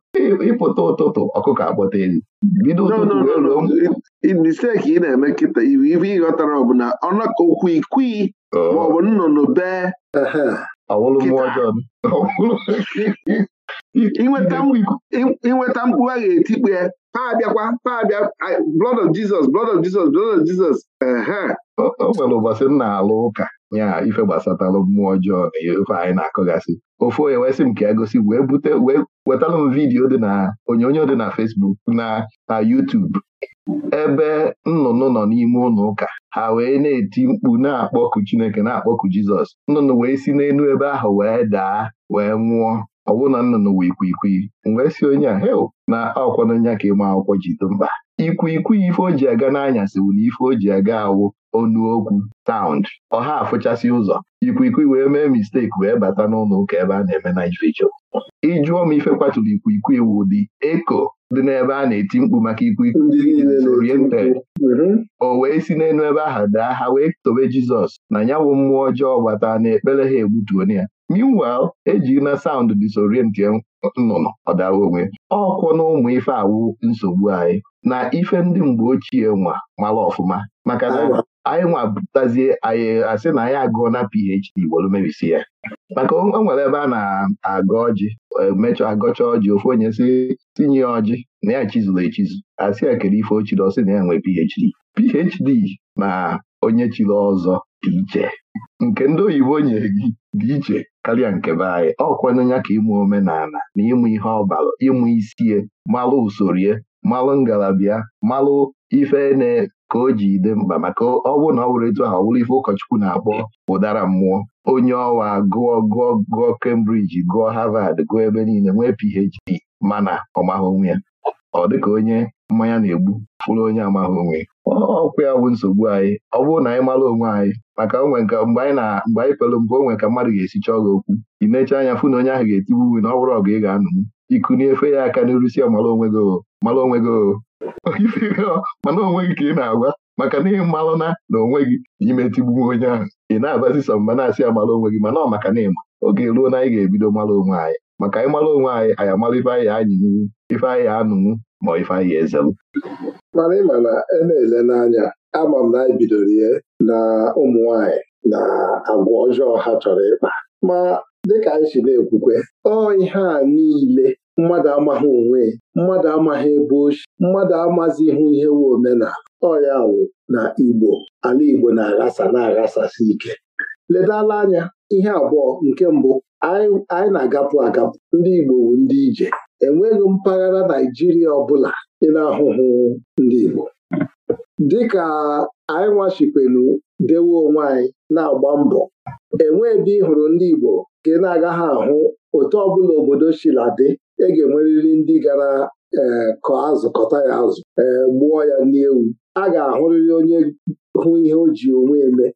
Speaker 2: ịpụta ụtụtụ ọkụkọ akpọta elu bido ụtụtụ wee ruo misteki ị na-eme kịta iwu ife ịghọtara ọ bụ na ọnọkọ okwu ikwii oh. maọbụ nnụnụ bee Ọwụlụ mmụọ ọjọọ <laughs> inweta mkpu a ga ya ha abịakwa ha abịa blood of Jesus blood of Jesus blood of Jesus
Speaker 1: o nwere ụbọchị m na-alụ ụka ya ife gbasatalụ mmụọ ọjọọ na ife anyị na-akọgasị ofe onye wesị m ka ya e gosi wee bute wee wetalụ m vidiyo dị na onyonyo dị na Fesbuk na na ebe nnụnụ nọ n'ime ụlọ ụka ha wee na-eti mkpu na-akpọku Chineke na-akpọku Jizọs nnụnụ wee si n'elu ebe ahụ wee daa wee nwụọ ọ bụrụ na nnụnụ wee ikwikwii wee si onye a heo na akwụkwọ nya ka ịma akwụkwọ ji mkpa. mba ikwikwii ife o ji aga n'anyasị bụ na ife o ji aga awụ onu okwu taund ọha afụchasị ụzọ ikwikwii wee mee misteki wee bata n'ụlọ ụka ebe a na-eme na ifecho ịjụọ m ife kwaturu ikwikwii wụ dị eko dị n'ebe a na-eti mkpu maka ikwikwii oriented o wee si n'elu ebe ahụ daa ha wee tobe Jizọs na ya bụ mmụọ ọjọọ gbata na ekpere ha egbutuone ya meanwhile eji na sound disorient nnụnụ ọdawa onwe ọkụ na ụmụ ife awụ nsogbu anyị na ife ndị mgbe ochie nwa mara ọfụma maka na ah. anyị nwa bụtazie anyị asị na anyị agụọ na PhD gbolu mebisi ya maka o nwere ebe a na-agụ ọjị e, mechọ agọcha ọjị ofu onye si tinye ọjị na ya chizuru echizu asị ya kere ife ochiri ọsị na ya nwee PhD PhD na onye chiri ọzọ dị iche nke ndị oyibo nyere gị dị iche karịa nke be anyị ọkwanụ ka ịmụ omenala na ịmụ ihe ọbara ịmụ isie malụ usoro ya malụ ngalaba malụ ife na ka o ji dị mkpa maka ọ bụrụ na ọ bụrụ etu ahụ ọ bụrụ ife ụkọchukwu na-akpọ ụdara mmụọ onye ọwa gụọ gụọ gụọ Cambridge gụọ Harvard gụọ ebe niile nwee PhD mana na maghị onwe ya ọ dịka onye mmanya na-egbu fụrụ onye amaghị onwe ọkwụ ya bụ nsogbu anyị ọ bụrụ na anyị mara onwe anyị maka onwe nke mgbe anyị na mgbe anyị pelụ mgbe onwe ka mmadụ ga-esi chọọ gị okwu ị na-eche anya fụ na onye ahụ ga-etibu uwe na ọ bụrụ ọgụ ị ga-anụ iku n'efe ya aka n'iru si mara onwe gị mara onwe gị mana onwe gị ka ị na-agwa maka na ịmalụ na na onwe gị n'ime tigbu onye ahụ ị na-abazi sọ mba na-asị mara onwe gị mana ọ maka na ịma oge ruo na anyị ga-ebido mara onwe anyị maka anyị mara onwe anyị anyị amala ife anyị anyanwụ ife anyị anụnwụ ma ifeanyị eze m
Speaker 2: mana ịma na ena na-ele n'anya ama m na anyị e bidoro ihe na ụmụ nwanyị na agwa ọjọọ ha chọrọ ịkpa ma dịka anyị si na-ekwukwe ọ ihe a niile mmadụ amaghị onwe mmadụ amaghị ebe oshi, mmadụ amazi ihu ihe wu omenala ọ wụ na Igbo ala Igbo na-aghasa na-aghasasi ike ledala anya ihe abụọ nke mbụ anyị na-agapụ agapụ ndị Igbo bụ ndị ije enweghị mpaghara Naijiria ọbụla ị na-ahụhụ ndị Igbo dịka anyị nwachikwelu dewe onwe anyị na-agba mbọ enwee ebe ị hụrụ ndị Igbo ka ị na-agaghị ahụ otu ọbụla obodo shiladị ị e ga-enwerịrị ndị gara ee kọ azụ kọta ya azụ ee gbuo ya n'ewu a ga-ahụrịrị onye hụ ihe o ji onwe eme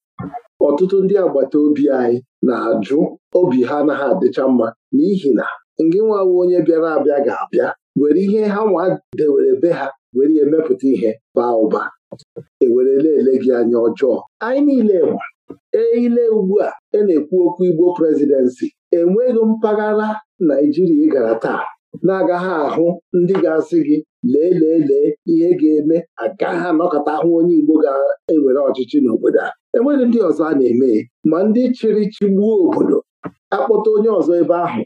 Speaker 2: ọtụtụ ndị agbata obi anyị na-ajụ obi ha na ha adịcha mma n'ihi na ngị nwawo onye bịara abịa ga-abịa were ihe ha nwa dewere be ha were emepụta ihe baa ụba ewere ele gị anya ọjọọ anyị niile nwa eile ugbu a e na-ekwu okwu Igbo prezidensị enweghị mpaghara Naijiria ị gara taa na-agaghị ahụ ndị ga-asị gị lee lee lee ihe ga-eme agaghị anọkọta ahụ onye Igbo ga-ewere ọchịchị n'obodo a enweghị ndị ọzọ a na-eme ma ndị chịrị chịgbuo obodo akpọta onye ọzọ ebe ahụ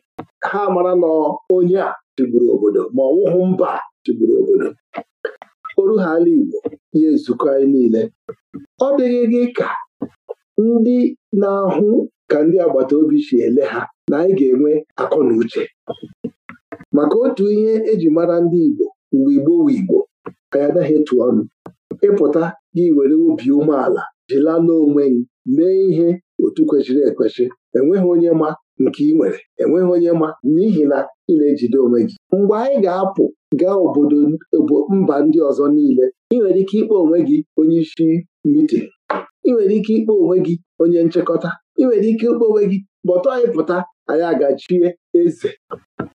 Speaker 2: ha mara na onye a chịgburu obodo ma ọ mba tụgburu obodo oru ha ala Igbo ihe nzukọ anyị niile ọ dịghị gị ka ndị na-ahụ ka ndị agbata obi si ele ha na anyị ga-enwe akọ na uche maka otu ihe eji mara ndị Igbo mgbe Igbo wu Igbo ka ya anaghị etu ọnụ ịpụta gị were obi umeala jilala onwe gị mee ihe otu kwesịrị ekwesị enweghị onye ma nke ị nwere enweghị onye ma n'ihi na ị na-ejide onwe gị mgbe anyị ga-apụ gaa obodo mba ndị ọzọ niile ị nwere ike ịkpọ onwe gị onye isi mitin ị nwere ike ịkpọ onwe gị onye nchekọta, ị nwere ike ịkpọ onwe gị kpọtọ anyị pụta anyị agachie eze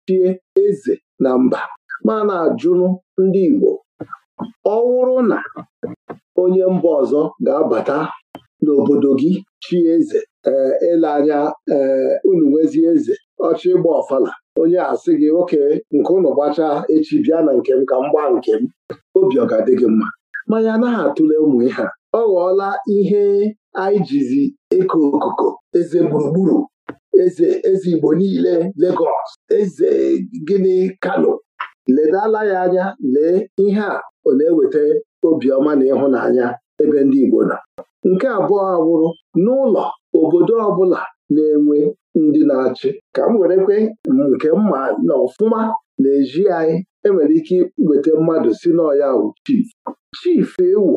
Speaker 2: chie eze na mba ma na ajụrụ ndị Igbo ọ na onye mba ọzọ ga-abata n'obodo gị chi eze ee eh, ele anya ee eh, unu nwezi eze ọchị ịgba ọfala onye asị gị oke nke ụnụ gbachaa echi bịa na nke m ka m gbaa nke m obi ọ ga-adị gị mma mmanya anaghị atụle ụmụ ihe a ọ ghọọla ihe anyị jizi okoko eze gburugburu eze eze Igbo niile legos eze gịnị Kano ledala ya anya lee ihe a ọ na-eweta obiọma na ịhụnanya ebe ndị Igbo nọ nke abụọ awụrụ n'ụlọ obodo ọbụla na-enwe ndị na-achị ka m werekwe nke mma na ọfụma na-eji anyị enwere ike iweta mmadụ si n'ọya wụ chief chief ewu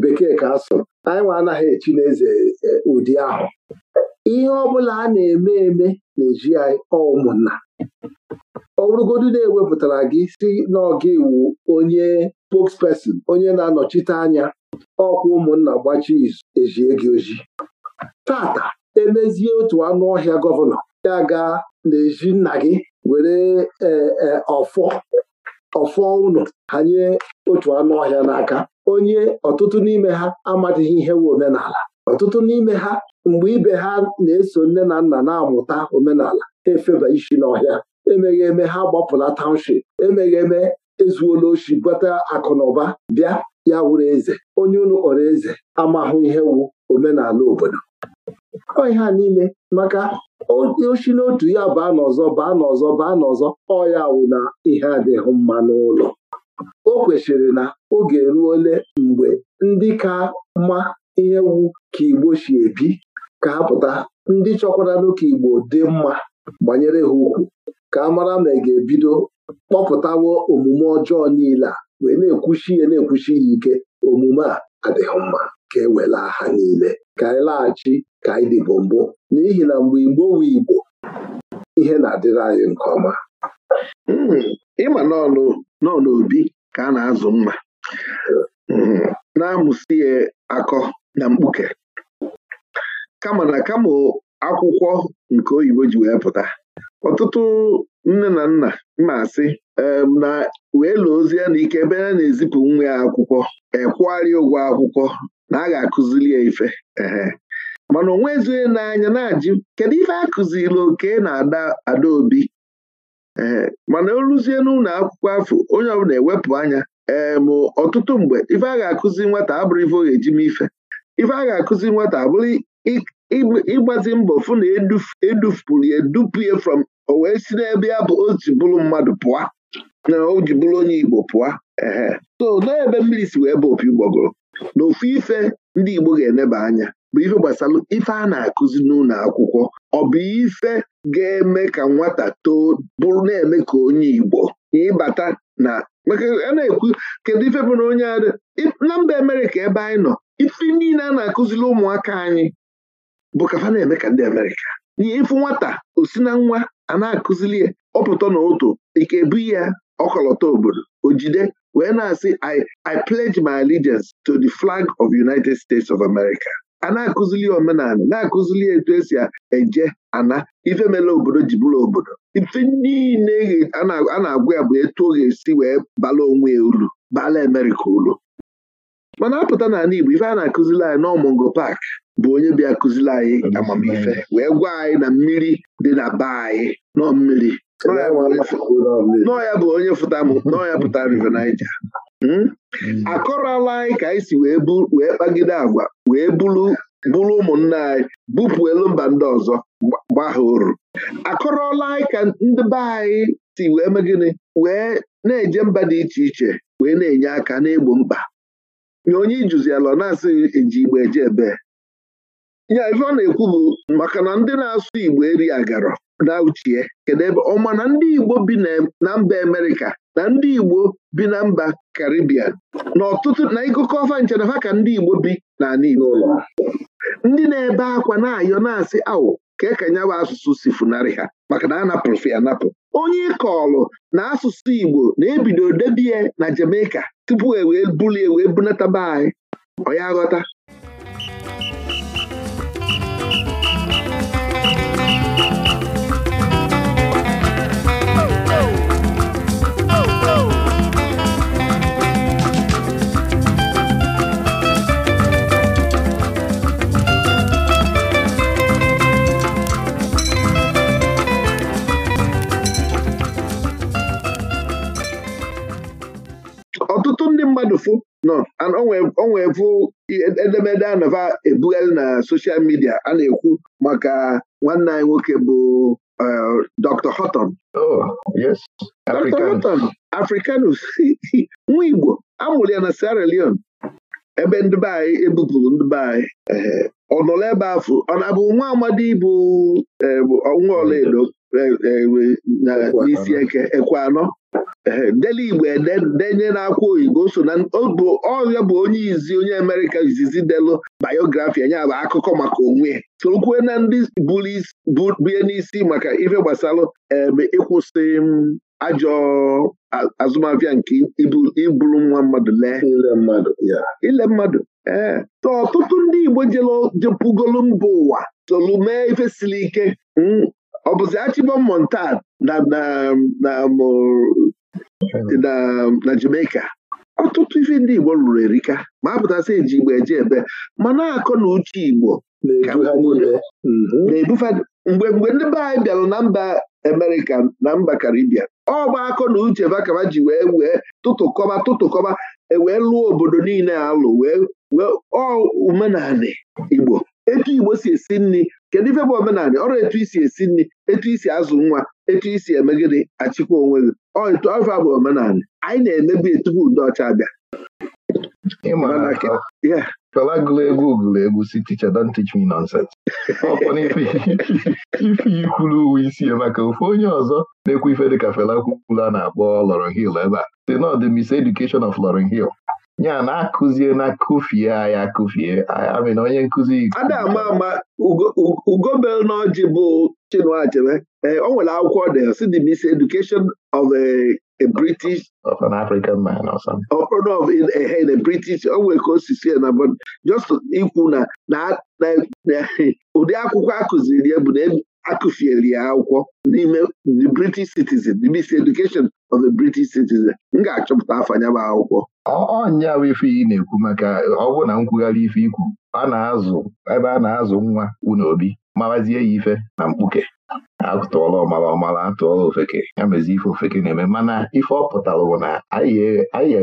Speaker 2: bekee ka asụrụ anyị nwa anaghị echi n'eze e, ụdị ahụ ihe ọbụla a na-eme eme na-eji anyị ụmụnna ọ na-ewepụtara gị si n'ọga iwu onye spokesperson onye na-anọchite anya ọkwa ụmụnna gbachi izu ejie gị oji tata emezie otu anụ ọhịa gọvanọ ya ga na-eji nna gị were e, e, ọfọ ọfọ ụnụ hanye otu anụ ọhịa n'aka onye ọtụtụ n'ime ha amadịghị ihe wu omenala ọtụtụ n'ime ha mgbe ibe ha na-eso nne na nna na-amụta omenala efeba isi n'ọhịa emeghị eme ha gbapụla township emeghị eme ezuola oshi bata akụ na ụba bịa ya wụrụ eze onye unu kpọrọ eze amahụ ihe wu omenala obodo ọ ihe a niile maka oshi n'otu ya baa n'ọzọ baa n'ọzọ baa n'ọzọ ọya ya wụ na ihe adịghị mma n'ụlọ o kwesịrị na oge ruole mgbe ndị ka mma ihe wu ka Igbo si ebi ka ha pụta ndị chọkwaranụ ka Igbo dị mma gbanyere ha ukwu ka a mara ma ị ga-ebido kpọpụtawo omume ọjọọ niile a wee na-ekwuchi ya na-ekwuchi ya ike omume a adịghị mma ka e wela ha niile ka anyị laghachi ka anyị dịbụ mbụ n'ihi na mgbe Igbo wu Igbo ihe na-adịrị anyị nke ọma hmm, ịma n'ọnụ obi ka a na-azụ mma hmm, na amụsị ya akọ na mkpuke kama na kama akwụkwọ nke oyibo ji wee pụta ọtụtụ nne na nna mma asị na wee lụọ ozi ya na ike ebe a na-ezipụ nwa ya akwụkwọ ekwụgharịa ụgwọ akwụkwọ na a ga-akụziri ya ife mana onwe ezughị n'anya na-ajụ kedu ife a kụziri oke na ada obi ee mana o ruzie n'ụlọ akwụkwọ afọ onye ọbụla ewepụ anya ee ọtụtụ mgbe ife a ga-akụzi nwata abụrụ ife ọ ga-eji m ife ife a ga-akụzi nwata abụrụ ịgbazi mbọ fụ na edufupụrụ e ya edupu ya from o wee si n'ebe ya bụ oji bụrụ mmadụ pụọ na o ji bụrụ onye Igbo pụọ ehe so n'ebe mmiri si wee bụ opi gbọgụrụ na ofu ife ndị Igbo ga-eneba anya bụ ife gbasara ife a na-akụzi n'ụlọ akwụkwọ ọ bụ ife ga-eme ka nwata too bụrụ na-eme ka onye Igbo ịbata na maka a na-ekwu kedu ife bụ na onye adị na mba emere ka ebe anyị nọ ife niile a na-akụziri ụmụaka anyị bụ ka na-eme ka ndị Amerịka n'ihe ịfụ nwata osi na nwa a na-akụziri ya ọpụtọ na otu ike ebu ya ọkọlọtọ obodo ojide wee na-asị I pledge my allegiance to the flag of United States of America. a na-akụzili omenala na-akụzili etu esi eje ana ife mele obodo ji bụrụ obodo ife niile a na-agwa ya bụ etu ọ ga-esi wee bala onwe ya uru bala Amerịka uru mana apụta n'ala Igbo ife a na-akụzili anyị n'ọmụngo pak bụ onye bịa kụzili anyị amamife wee gwa anyị na mmiri dị na be anyị nọ mmiri ya bụ onye fụta m nọọ ya pụtara River Niger hmm? Hmm. akọrọla anyị ka anyị si wee kpagide agwa wee bụrụ ụmụnna anyị bupụ elu mba ndị ọzọ gbaa ha oru akọrọla anyị ka ndị be anyị si wee megịnị wee na-eje mba dị iche iche wee na-enye aka n'egbo mkpa nye onye ijuziala ọ na-asịghị eji igbo eje ebe ya ife ọ na-ekwu bụ maka na ndị na-asụ igbo eri agarọ na uchie kedu ebe ọma na ndị igbo bi na mba amerịka na ndị igbo bi na mba karibian na ọtụtụ na ịgụkọ ọfa ha ka ndị igbo bi n'ala igbo ndị na-ebe akwa na-ayọ na-asị awụ ka ka nyawa asụsụ si funarị ha maka na anapụrụ ya anapụ onye ịkọọlụ na asụsụ igbo na-ebido debie na jamaica tupu e wee bulie wee bunataba anyị ọ ya ghọta bụ e, edemede anava ebugharị na soshal midia a na-ekwu maka nwanne anyị nwoke bụ Dr. hoton Dr. Africanus <laughs> nwa Igbo amụrụ ya na Sierra Leone ebe ndị be anyị ebupụrụ ndị eh, ọ ebe afọ ọ na-abụ nwa amadi bụ eh, nwa ọlaedo eh, n'isi eke ekwe anọ deli igbo e, denye akwa oyibo so na ọrịa bụ onye izi onye amerịka izizi delu bayografi anya bụ akụkọ maka onwe sokwue na ndị bie n'isi maka ife gbasalụ ebe ịkwụsị ajọ azụmahịa nke iburu nwa mmadụ ya. ile mmadụ ee so ọtụtụ ndị igbo jepụgolu mba ụwa tolu mee ife siri ike ọ bụzi achịbọm um, na na Jamaica ọtụtụ ife ndị Igbo lụrụ erika ma a eji Igbo eje ebe ma na-akọ na uche Igbo na mm-hmm. mhm. mgbe mgbe ndị be anyị bịara na mba Amerịka na mba Karibia ọ gba akọ na uche bakaba ji wee wee tụtụkọba tụtụkọba ewee lụọ obodo niile alụ wee wee omenanị Igbo etu Igbo si esi nri kedu ife bụ omenala ọrụ etu isi esi nri etu isi azụ nwa etu isi emegide achịkwa onwe gị etu ọfa bụ omenala anyị na-emebi tupu ndị ọcha abịa Fela egwu si teacher don't teach me nonsense
Speaker 1: ife kwuru uwe isi ya maka ofe onye ọzọ na-ekwu ife dịka Fela kwukwuru a na-akpọ Lauryn Hill ebe a si nọ ọ dị Education of Lauryn Hill a na-akụzie na kụfie anyị akụfie amị na onye nkụzi ada ama ama
Speaker 2: ugobel na ọjị bụ Chinua Achebe eh, o nwere akwụkwọ the CDBC Education of a British of an African man or something of in a eh, British o nwere ka o si sie na just ikwu na na ụdị akwụkwọ akụziri ya bụ na e akụfieli ya akwụkwọ n'ime the british citizen the bc education of the british citizen m ga-achọpụta afanya bụ akwụkwọ Ọ
Speaker 1: bụ ife ị na-ekwu maka ọ na nkwugharị ife ikwu a na-azụ ebe a na-azụ nwa unu obi mawazie ya ife na mkpuke atụọla ọmara ọmara atụọla ofeke ya mezi ife ofeke na-eme mana ife ọ pụtara bụ na anyị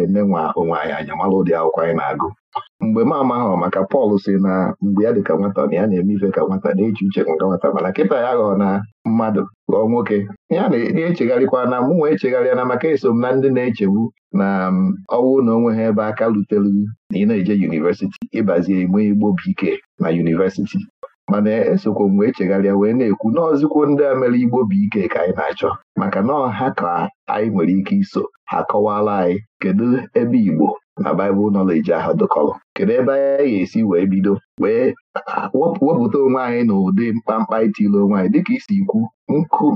Speaker 1: eme e nwa onwe anyị anya mara ụdị akwụkwọ anyị na-agụ mgbe m amaghị maka Pọl si na mgbe ya dị ka nwata na ya na-eme ife ka nwata na-eji uche nke nwata mana kịta ya ghọọ na mmadụ ghọọ nwoke ya na-echegharịkwa na mụ nwa echegharịa na maka eso m na ndị na-echegbu na um, ọwụ na onwe ha ebe aka rutelu na ị na-eje yunivesiti ịbazie ime igbobi ike na yunivesiti mana e esokwa mgbe echegharịa wee na-ekwu n'ọzụkwo ndị a mere Igbo bụ ike ka anyị na-achọ maka na ọha ka anyị nwere ike iso ha kọwara anyị kedu ebe Igbo na Baịbụl nọleji ahụ dụkọrọ kedu ebe anyị ga-esi wee bido wee wepụta onwe anyị na ụdị mkpamkpa itile onwe anyị dịka isi ikwu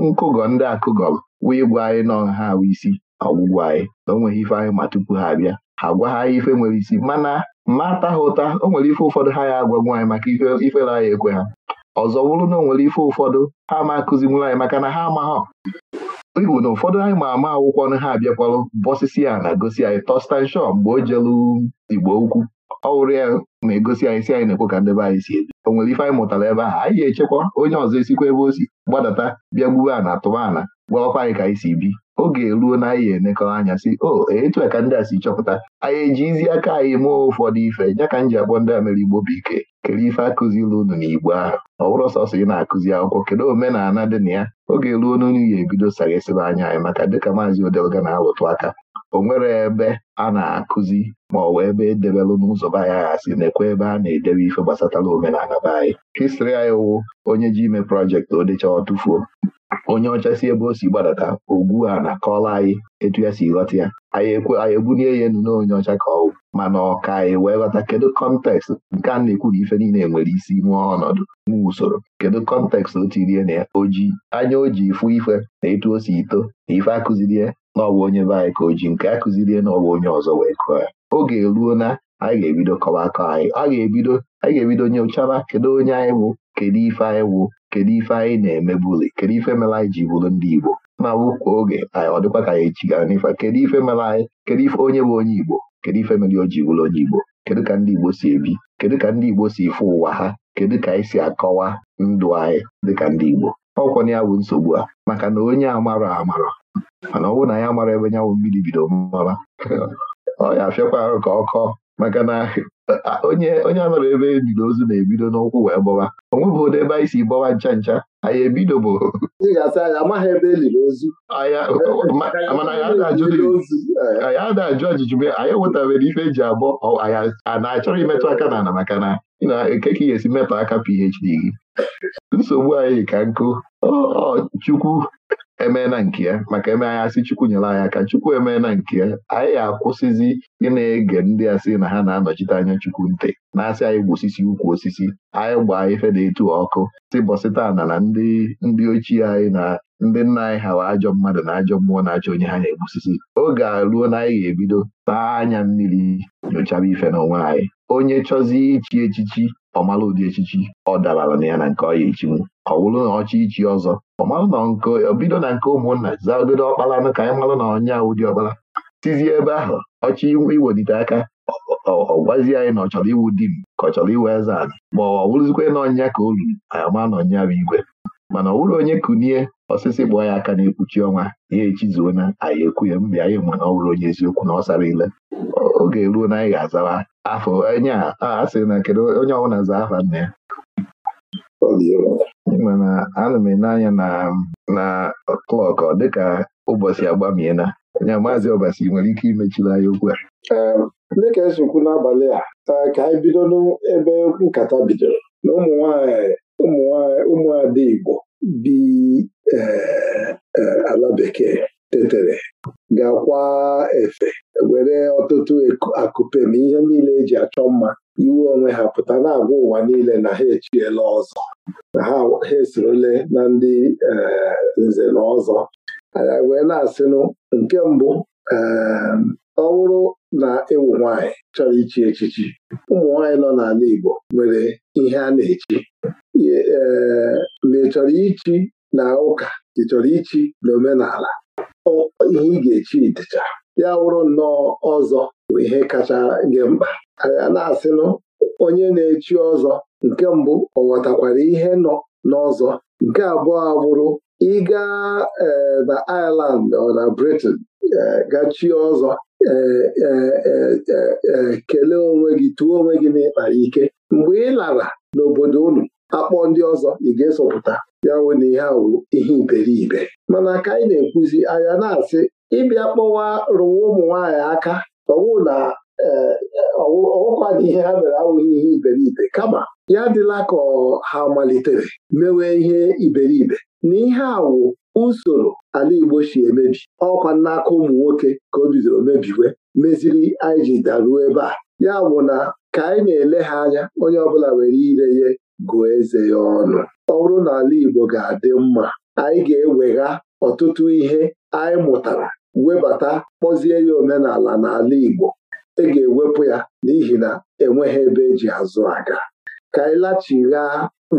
Speaker 1: nkụgọ ndị akụgọrọ wee gwa anyị na ọha isi ọgwụgwọ anyị na o nweghị ife anyị ma tupu ha abịa ha gwa ha ife nwere isi mana mataha ha ụta o nwere ife ụfọdụ ha ya agwa nwaanyị maka ifere anyị ekwe ha ọzọ bụrụ na o nwere ife ụfọdụ ha ma akụzinwuru anyị maka na ha amaghọ Ịbụ na ụfọdụ anyị ma ama akwụkwọ na ha abịakwarụ bọsisi ya na-egosi anyị Tọstan mgbe o jelu Igbo ukwu ọ wụrụ ya na-egosi anyị si anyị na-ekwe ka ndebe anyị si ebi o nwere ife anyị mụtara ebe ahụ anyị ga-echekwa onye ọzọ esikwa ebe o si gbadata bịa gbube ana tụba ana gwaọkwa anyị ka anyị si bi oge eruo na anyị ga-emekọ anya si o etu ka ndị a si chọpụta anyị ejizi aka anyị mụọ ụfọdụ ife ya ka m ji agba ndị a mere igbo bụ ike kere ife akụziri unu igbo ahụ ọ bụrụ sọsọ ị na-akụzi akwụkwọ kedu omenala dị na ya oge eruo n'onu ya ebido sarịsịba anya anyị maka dịka maazị odelga na-alụtụ aka o nwere ebe a na-akụzi ma ọ bụ ebe edebelụ n'ụzọ be anyị aghasị na-ekwe ebe a na-edebe ife gbasatara omenala be anyị histri anyị wụ onye ji ime projekti o ọ tụfuo onye ọcha si ebe o si gbadata ogwu a na kọla anyị etu ya si ghọta ya anyị ebulie ya enu n'onye ọcha ka ọwụ mana ọka anyị wee ghọta kedu kọntekst nke a na-ekwu na ife niile nwere isi nwee ọnọdụ nwa usoro kedu kọntekst o tirie na ya oji anya o ji ifụ ife na etu o si ito na ife akụzirie na ọbụ onye be anyị ka o ji nke akụzirie na ọbụ onye ọzọ wee kụọ ya oge eruo na anyị ga-ebido kọwa akọ anyị a ga-ebido anyị ga-ebido nyochaba kedu onye anyị bụ kedu ife anyị wụ kedu ife anyị na-emebuli kedu ife mere anyị ji bụrụ ndị Igbo ma bụkwa oge anyị ọ dịkwa ka echi chigara n'ife kedu ife mere anyị kedu ife onye bụ onye Igbo kedu ife mere o ji onye Igbo kedu ka ndị Igbo si ebi kedu ka ndị Igbo si efe ụwa ha kedu ka anyị si akọwa ndụ anyị dịka ndị Igbo na ya bụ nsogbu a maka na onye amara amara mana ọ bụrụ na ya mara ebe nyawụ mmiri bido mara <laughs> ọ ya afịakwa arụ ka ọ kọọ maka na onye onye anọrọ ebe ejiri ozu na-ebido n'ụkwụ wee gbọwa onwebụ ụdị ebe anyị si gbọwa ncha ncha anyị ebido e e bụ anyị ada ajụ ajụjụ be anyị enwetabere ife eji abọ anyị a na-achọrọ imetụ aka na ala maka na na-eke ka ị ga-esi metụ aka PhD gị nsogbu anyị ka nkụ chukwu emee na nke ya maka eme anyị asị Chukwu nyere anyị aka Chukwu emee na nke ya anyị ga-akwụsịzi ị na-ege ndị asị na ha na-anọchite anya Chukwu nte na-asị anyị osisi, ukwu osisi anyị gbaa ife na etu ọkụ si bọsịtana na ndị ndị ochie anyị na ndị nna anyị ha ajọ mmadụ na ajọ mmụọ na-achọ onye ha na-egbusisi oge a ruo na anyị ga-ebido taa anya mmiri nyochaba ife na onwe anyị onye chọzi ichi echichi ọmala ụdị echichi ọ dabara na ya na nke ọ echinwu ka ọ na ọ ichi ọzọ ọ marụ na nke bido na nke ụmụnna zagodo ọkpalanụ ka anyị marụ na ọnya ụdị ọkpara tizie ebe ahụ ọchị iwelite aka ọ gwazi anyị na ọ chọrọ iwu di ka ọ chọrọ iwu eze anyị ma ọ bụrụzikwa na ọnya ka o ruru anyị ma na ọnya bụ igwe mana ọ bụrụ onye kunie osisi kpọọ ya aka na-ekpuchi ọnwa ya echizuo na anyị ekwughị mgbe anyị mana ọ bụrụ onye eziokwu na ọ sara ile oge ruo na anyị ga-azawa afọ onye a na kedu onye ọbụla zaa afa nna ya mana ana m ele anya na klọk dịka ụbọchị agbamiela nya maazị ọbasi nwere ike imechiri anyị okwu
Speaker 2: a dịka esikwu n'abalị a ka anyị bido n'ebe nkata bidoro na ụmụnwaanyị ụmụnwaanyị ụmụada Igbo bi e, e, ala bekee tetere ga-akwa efe were ọtụtụ akụpe na ihe niile eji achọ mma iwe onwe ha pụta na-agwa ụwa niile na ha echiela ọzọ na ha esorole na ndị eh, nze na ọzọ anyị wee na-asịnụ nke mbụ eh, ọ bụrụ na ịwụ nwaanyị chọrọ ichi echichi ụmụ nwaanyị nọ n'ala Igbo nwere ihe a na-echi ee mgbe eh, ị chọrọ ichi na ụka ị chọrọ ichi na omenala ihe ị ga-echi dịcha ya wụrụ nnọọ ọzọ bụ ihe kacha gị mkpa anyị na-asịnụ onye na-echi ọzọ nke mbụ ọ ghọtakwara ihe nọ n'ọzọ nke abụọ abụrụ ịga eh, na Ireland ọ na Britain eh, gachi ọzọ eh, kelee onwe gị tuo onwe gị n'ịkpa ike mgbe ị lara n'obodo unu akpọ ndị ọzọ ị ga-esopụta ya wụ na ihe awụ ihe iberibe mana ka anyị na-ekwuzi anya na-asị ịbịa kpọwa rụwa ụmụ nwaanyị aka ọwụ na e, e, ọwụkwa dị ihe ha mere awụghị ihe iberibe kama ya dịla ka ha malitere mewe ihe iberibe na ihe awụ usoro ala Igbo si emebi ọkwa n'aka ụmụ nwoke ka o bidoro mebiwe meziri anyị ji daruo ebe a ya bụ na ka anyị na-ele ha anya onye ọbụla were ire ya gụọ eze ya ọnụ ọ bụrụ na ala Igbo ga-adị mma anyị ga-ewegha ọtụtụ ihe anyị mụtara webata kpọzie ya omenala n'ala Igbo ị e ga-ewepụ ya n'ihi na enweghị ebe eji azụ aga ka anyị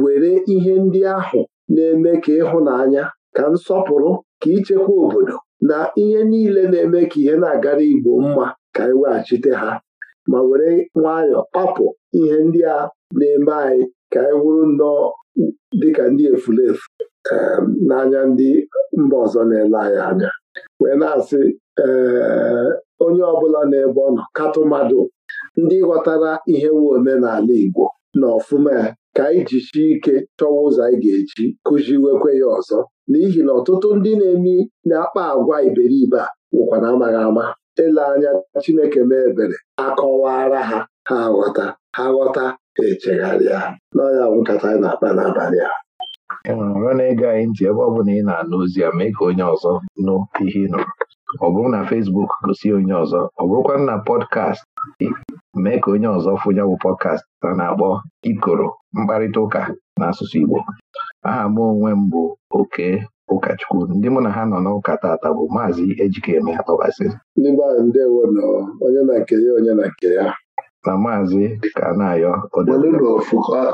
Speaker 2: were ihe ndị ahụ na-eme ka ịhụ ịhụnanya ka nsọpụrụ ka ichekwa obodo na ihe niile na-eme ka ihe na-agara Igbo mma ka anyị e weghachite ha ma were nwayọọ kpapụ ihe ndị a na-eme anyị ka anyị wụrụ nnọọ dịka ndị efulefu n'anya ndị mba ọzọ na-ele anyị anya wee na-asị onye ọbụla ebe ọ nọ mmadụ ndị ghọtara ihe nwe omenala Igbo na ọfụma ya ka anyị ike chọwa ụzọ anyị ga-eji kụziwekwe ya ọzọ n'ihi na ọtụtụ ndị na-eme na-akpa agwa iberibe a wụkwa na amaghị ama ele anya Chineke mee ebere akọwara ha ha ghọta ha ghọta echegharịa n'ọnya ya nkata anyị na-akpa n'abalị a
Speaker 1: enwere na-ege anyị ntị ebe ọ bụla ị na-anụ ozi ya mee ka onye ọzọ nụ ihe ị nụrụ ọ bụrụ na Fesbuk gosi onye ọzọ ọ bụrụkwa na pọdkast mee ka onye ọzọ fụnya bụ pọdkast a na-akpọ ikoro mkparịta ụka n'asụsụ Igbo aha m onwe m bụ oke ụkọchukwu ndị mụ na ha nọ n'ụka tata bụ maazị Ejikeme Atọbasị ndị onye na maazị ka onye na ayọ ya na